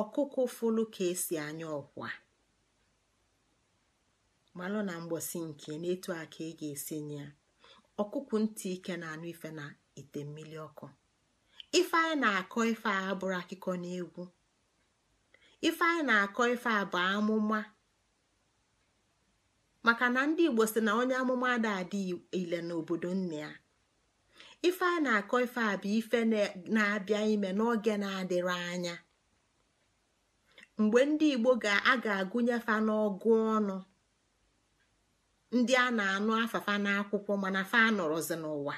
ọkụkụ fụlụ ka esi anya ọkwa malụ na mgbọsi nke na a aka ị ga-esi nye ya ọkụkụ ntị ike na-anụ ife na ite mmiri ọkụ ife anyị na-akọ ife a bụrụ akụkọ na egwu ife anyị na-akọ ife a bụ amụma maka na ndị igbo si na onye amụma ada adị ile n'obodo nne ya ife a na-akọ ife a bụ ife na-abịa ime n'oge na-adịrị anya mgbe ndị igbo a ga-agụnyefa n'ọgụ ọnụ ndị a na-anụ afafa n'akwụkwọ mana fa nọrọzi n'ụwa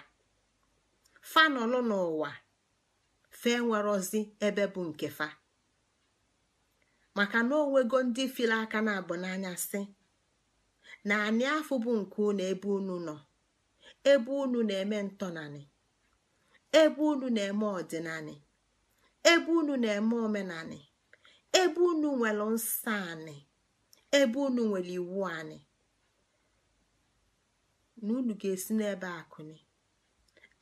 fa nọlụ n'ụwa fe nwerozi ebe bụ nke fa maka na onwego ndị fili aka na-abụ n'anya si na anị afọ bụ nke unu ebe unu nọ ebe unu na-eme ntọnanị ebe unu na-eme ọdịnanị ebe unu na-eme omenanị ebe unu nwere nsọ anị ebe unu nwere iwu anị na unu ga-esi n'ebe akụni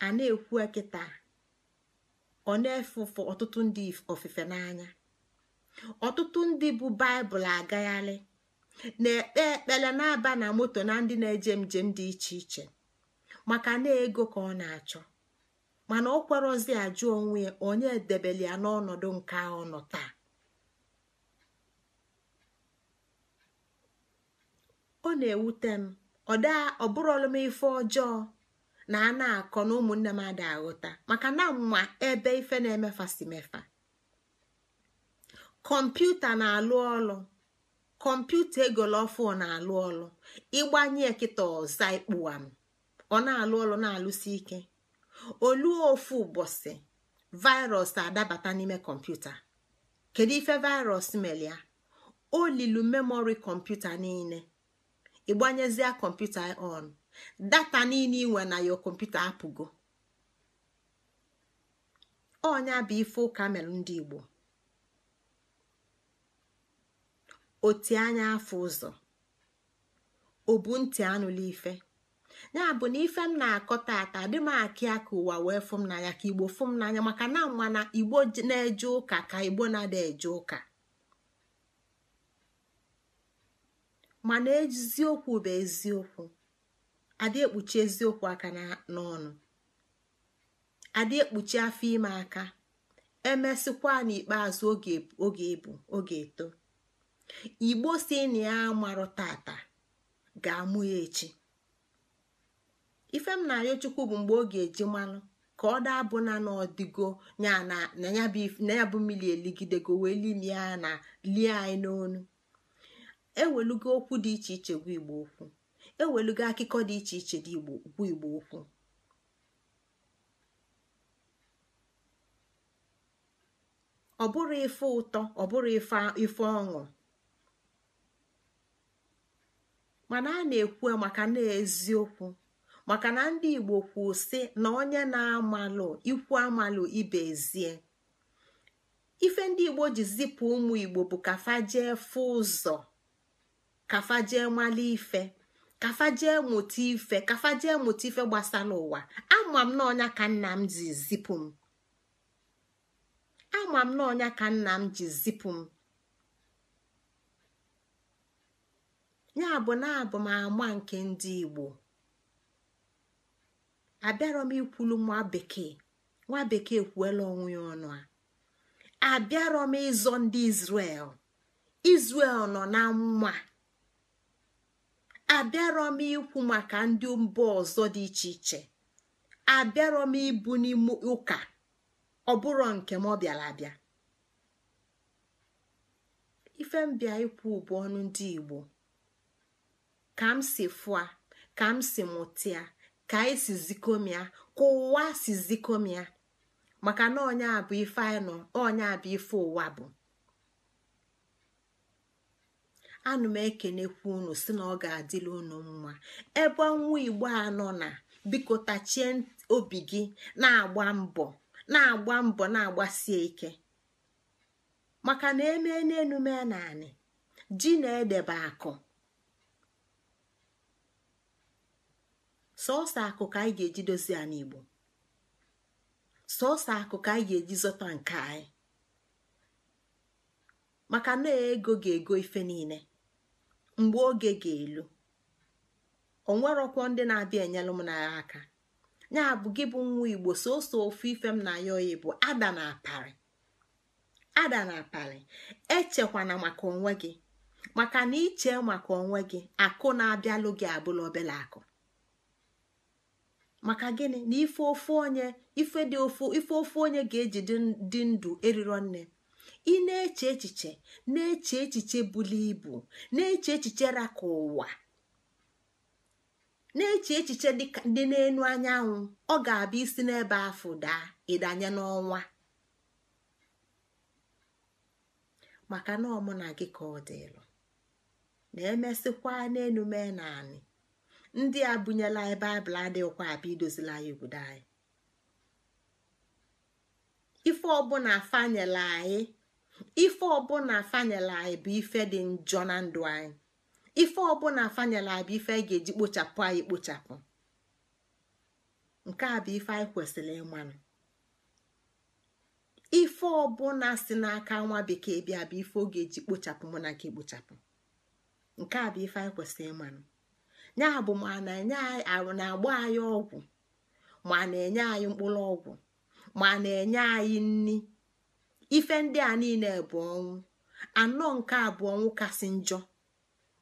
a na-ekwu ekịta ọ na-efufe ọtụtụ ndị ofufe n'anya ọtụtụ ndị bụ baịbụl agagharị na-ekpe ekpele na-aba na moto na ndị na-eje njem dị iche iche maka na ego ka ọ na-achọ mana ọ kwerozi ajụ onwe ya onye debeli ya n'ọnọdụ nke ahụ nọ taa ọ na-ewute m ọ bụrụ m ife ọjọọ na a na-akọ na ụmụnne m ada aghụta maka na mma ebe ife na-emefasi mefa kọmputa na-alụ ọlụ kọmputa egolofu na-alụ ọlụ ịgbanye kịta ọza ikpụam ọ na-alụ ọlụ na-alụsi ike olu ofu ụbọchị virus adabata n'ime kọmputa kedu ife virus melia o lilu memori kọmputa niile ịgbanyezie kọmputa on data niile inwe na yo kọmputa apụgo ọnya bụ ife ụka mere ndị Igbo oti anya afọ ụzọ obu ntị anụla ife ya bụ na ife m na-akọ tata dị m akị aka ụwa wee fụ m n'anya ka igbo fụ m n'anya maka na mana igbo na-eje ụka ka igbo na-ada eje ụka mana eziokwu bụ eziokwu adị ekpuchi eziokwu aka n'ọnụ adị ekpuchi afọ ime aka emesịkwa n'ikpeazụ oge ebu oge eto igbo si na ya marụ tata ga-amụ ya echi ife m na-ayọ chukwu bụ mgbe ọ ga-eji mmanụ ka ọ daa bụ na n'ọdịgo na ya bụ mmiri eligidego wee limie ya na lie anyị n'onu ewelugo okwu dị iche iche gwa igbo okwu ewelugo akụkọ dị iche iche dị okwu ọ bụrụ ife ụtọ ọ bụrụ ife ọṅụ mana a na-ekwu maka na eziokwu maka na ndị igbo kwuo sị na onye na-amalụ ikwu amalụ ibe ezie ife ndị igbo ji zipụ ụmụ igbo bụ kafajee fụ ụzọ kafajee mala ife kafajee mụta ife kafajee mụta ife gbasa n'ụwa ama m na ka ka nna m ji zipụ m ya bụ na ama nke ndị igbo abịarọ m ikwulu nwa bekee nwa bekee kwuela onwe ya ọnụ a abịarọ m ịzọ ndị Izrel Izrel nọ na nwa abịarọ m ikwu maka ndị mba ọzọ dị iche iche abịarọ m ibu n'ime ụka ọ bụrụ nke m ọ bịara abịa ife mbịa ikwu bụ ọnụ ndị Igbo ka m si fua ka m si mutia ka anyị e si zikomia ka ụwa si zikomia maka na onye a bụ ife anyị nọ onye bụ ife ụwa bụ anụ m ekenekwu unu si na ọ ga-adịla unu mma ebe nwa igbo a na biko tachie obi gi na-agba mbọ na-agba mbọ na-agbasie ike maka na emee n'enume naanị ji na-edebe akụ sọọsọ akụ ka anyị ga-eji dozie anyị igbo sọọsọ akụ ka anyị ga-eji zọta nke anyị maka na ego ga-ego ife niile mgbe oge ga-elu onwerọkwọ ndị na-abịa enyelụ m n'agha aka ya bụ gị bụ nwa igbo sọọsọ ofu ife m na ya oyi bụ ada na aparị ada na echekwana maka onwe gị maka na iche maka onwe gị akụ na-abịalụ gị abụla obele akụ maka gịnị na ife ofe onye ife dị ofu ife ofu onye ga-eji dị ndụ eriro nne ị na-eche echiche na-eche echiche buli ibu na-eche echiche raka ụwa na-eche echiche dị n'elu anyanwụ ọ ga-abịa isi n'ebe afọ daa ịdanye n'ọnwa maka na ọmụ na gị ka ọ dịlụ na-emesịkwa n'elu mee naanị ndị a bunyela anyị baịbụl adịghịkwa abịa idozila anyị obodo anyị ife ọbụla fanyela anyị ife ọbụla fanyela anyị bụ ife dị njọ na ndụ anyị ife ọbụla fanyela anyị bụ ife anyị ga-eji kpochapụ anyị kpochapụ nke a bụ ife anyị kwesịrị ịmanụ ife ọbụla si n'aka nwa bekee bịa bụ ife ọ ga-eji kpochapụ mụ na nke kpochapụ nke a bụ ife anyị kwesịrị ịmanụ ya bụ ma na-agba anyị ọgwụ ma na-enye anyị mkpụrụ ọgwụ ma na-enye anyị nni ife ndị a niile bụ ọnwụ anọ nke abụọ ọnwụ kasị njọ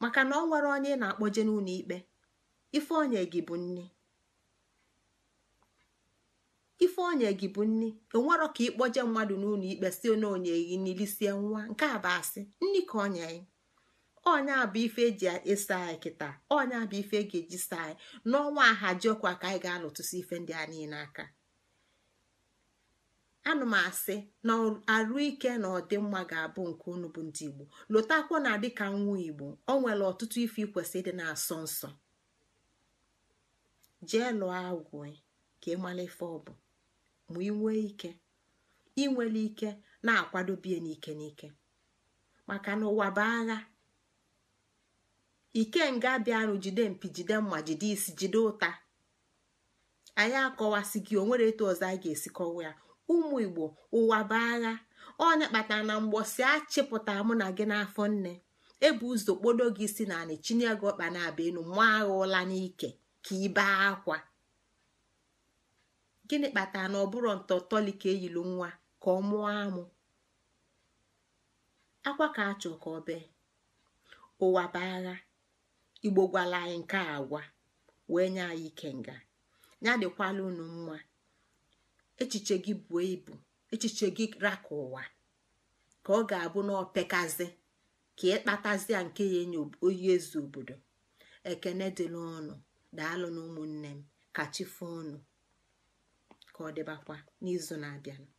maka na ọ nwere onye na-akpọje n'ụlọ ikpe ife onye gị bụ nni ife ka ịkpọje mmadụ n'ụlọ ikpe si onye onye gị nilisie nwa nke a bụ nni ka onye anyị onye bụ ife eji ịsa anyị kịta ọnya bụ ife e ga-eji saa anyị n'ọnwa ahajiọkwa ka anyị ga-alụtụsi ife ndị a niile aka anụ m asị na arụ ike na ọdịmma ga-abụ nke unu bụ ndị igbo lotakwa na dịka nwa igbo ọ nwere ọtụtụ ife ikwesị dị na-asọ nsọ jee lụọ agwụ ka ịmala ife ọ bụ ma inwe ike inwere ike na akwadobie n'ike n'ike maka na ụwa bụ agha ikenga bịanụ jide mpi jide mma jide isi jide ụta anyị akọwasị gị onwere etu ọzọ a ga-esi kọwa ya ụmụ igbo ụwa bụ agha ọnya kpatara na mgbọsi achịpụtara mụ na gị n'afọ nne ebu ụzọ kpodo gị si na anị chinye gị ọkpa na-abịa enu mụ agha ụla n'ike ka ibe akwa gịnị kpatara na ọ bụrụ ntọtọli ka eyilu nwa ka ọ mụọ amụ akwa ka achọ ka ọ bee ụwa bụ agha igbo gwala anyị nke a agwa wee nye anyị nga ya dịkwala unu mma echiche gị buo ibu echiche gị raka ụwa ka ọ ga-abụ na opekazi ka ịkpatazia nke ya enye oyi ezu obodo ekene dị n'ọnụ, daalụ na ụmụnne m ka chi ka ọ dịbakwa n'izu na-abịanụ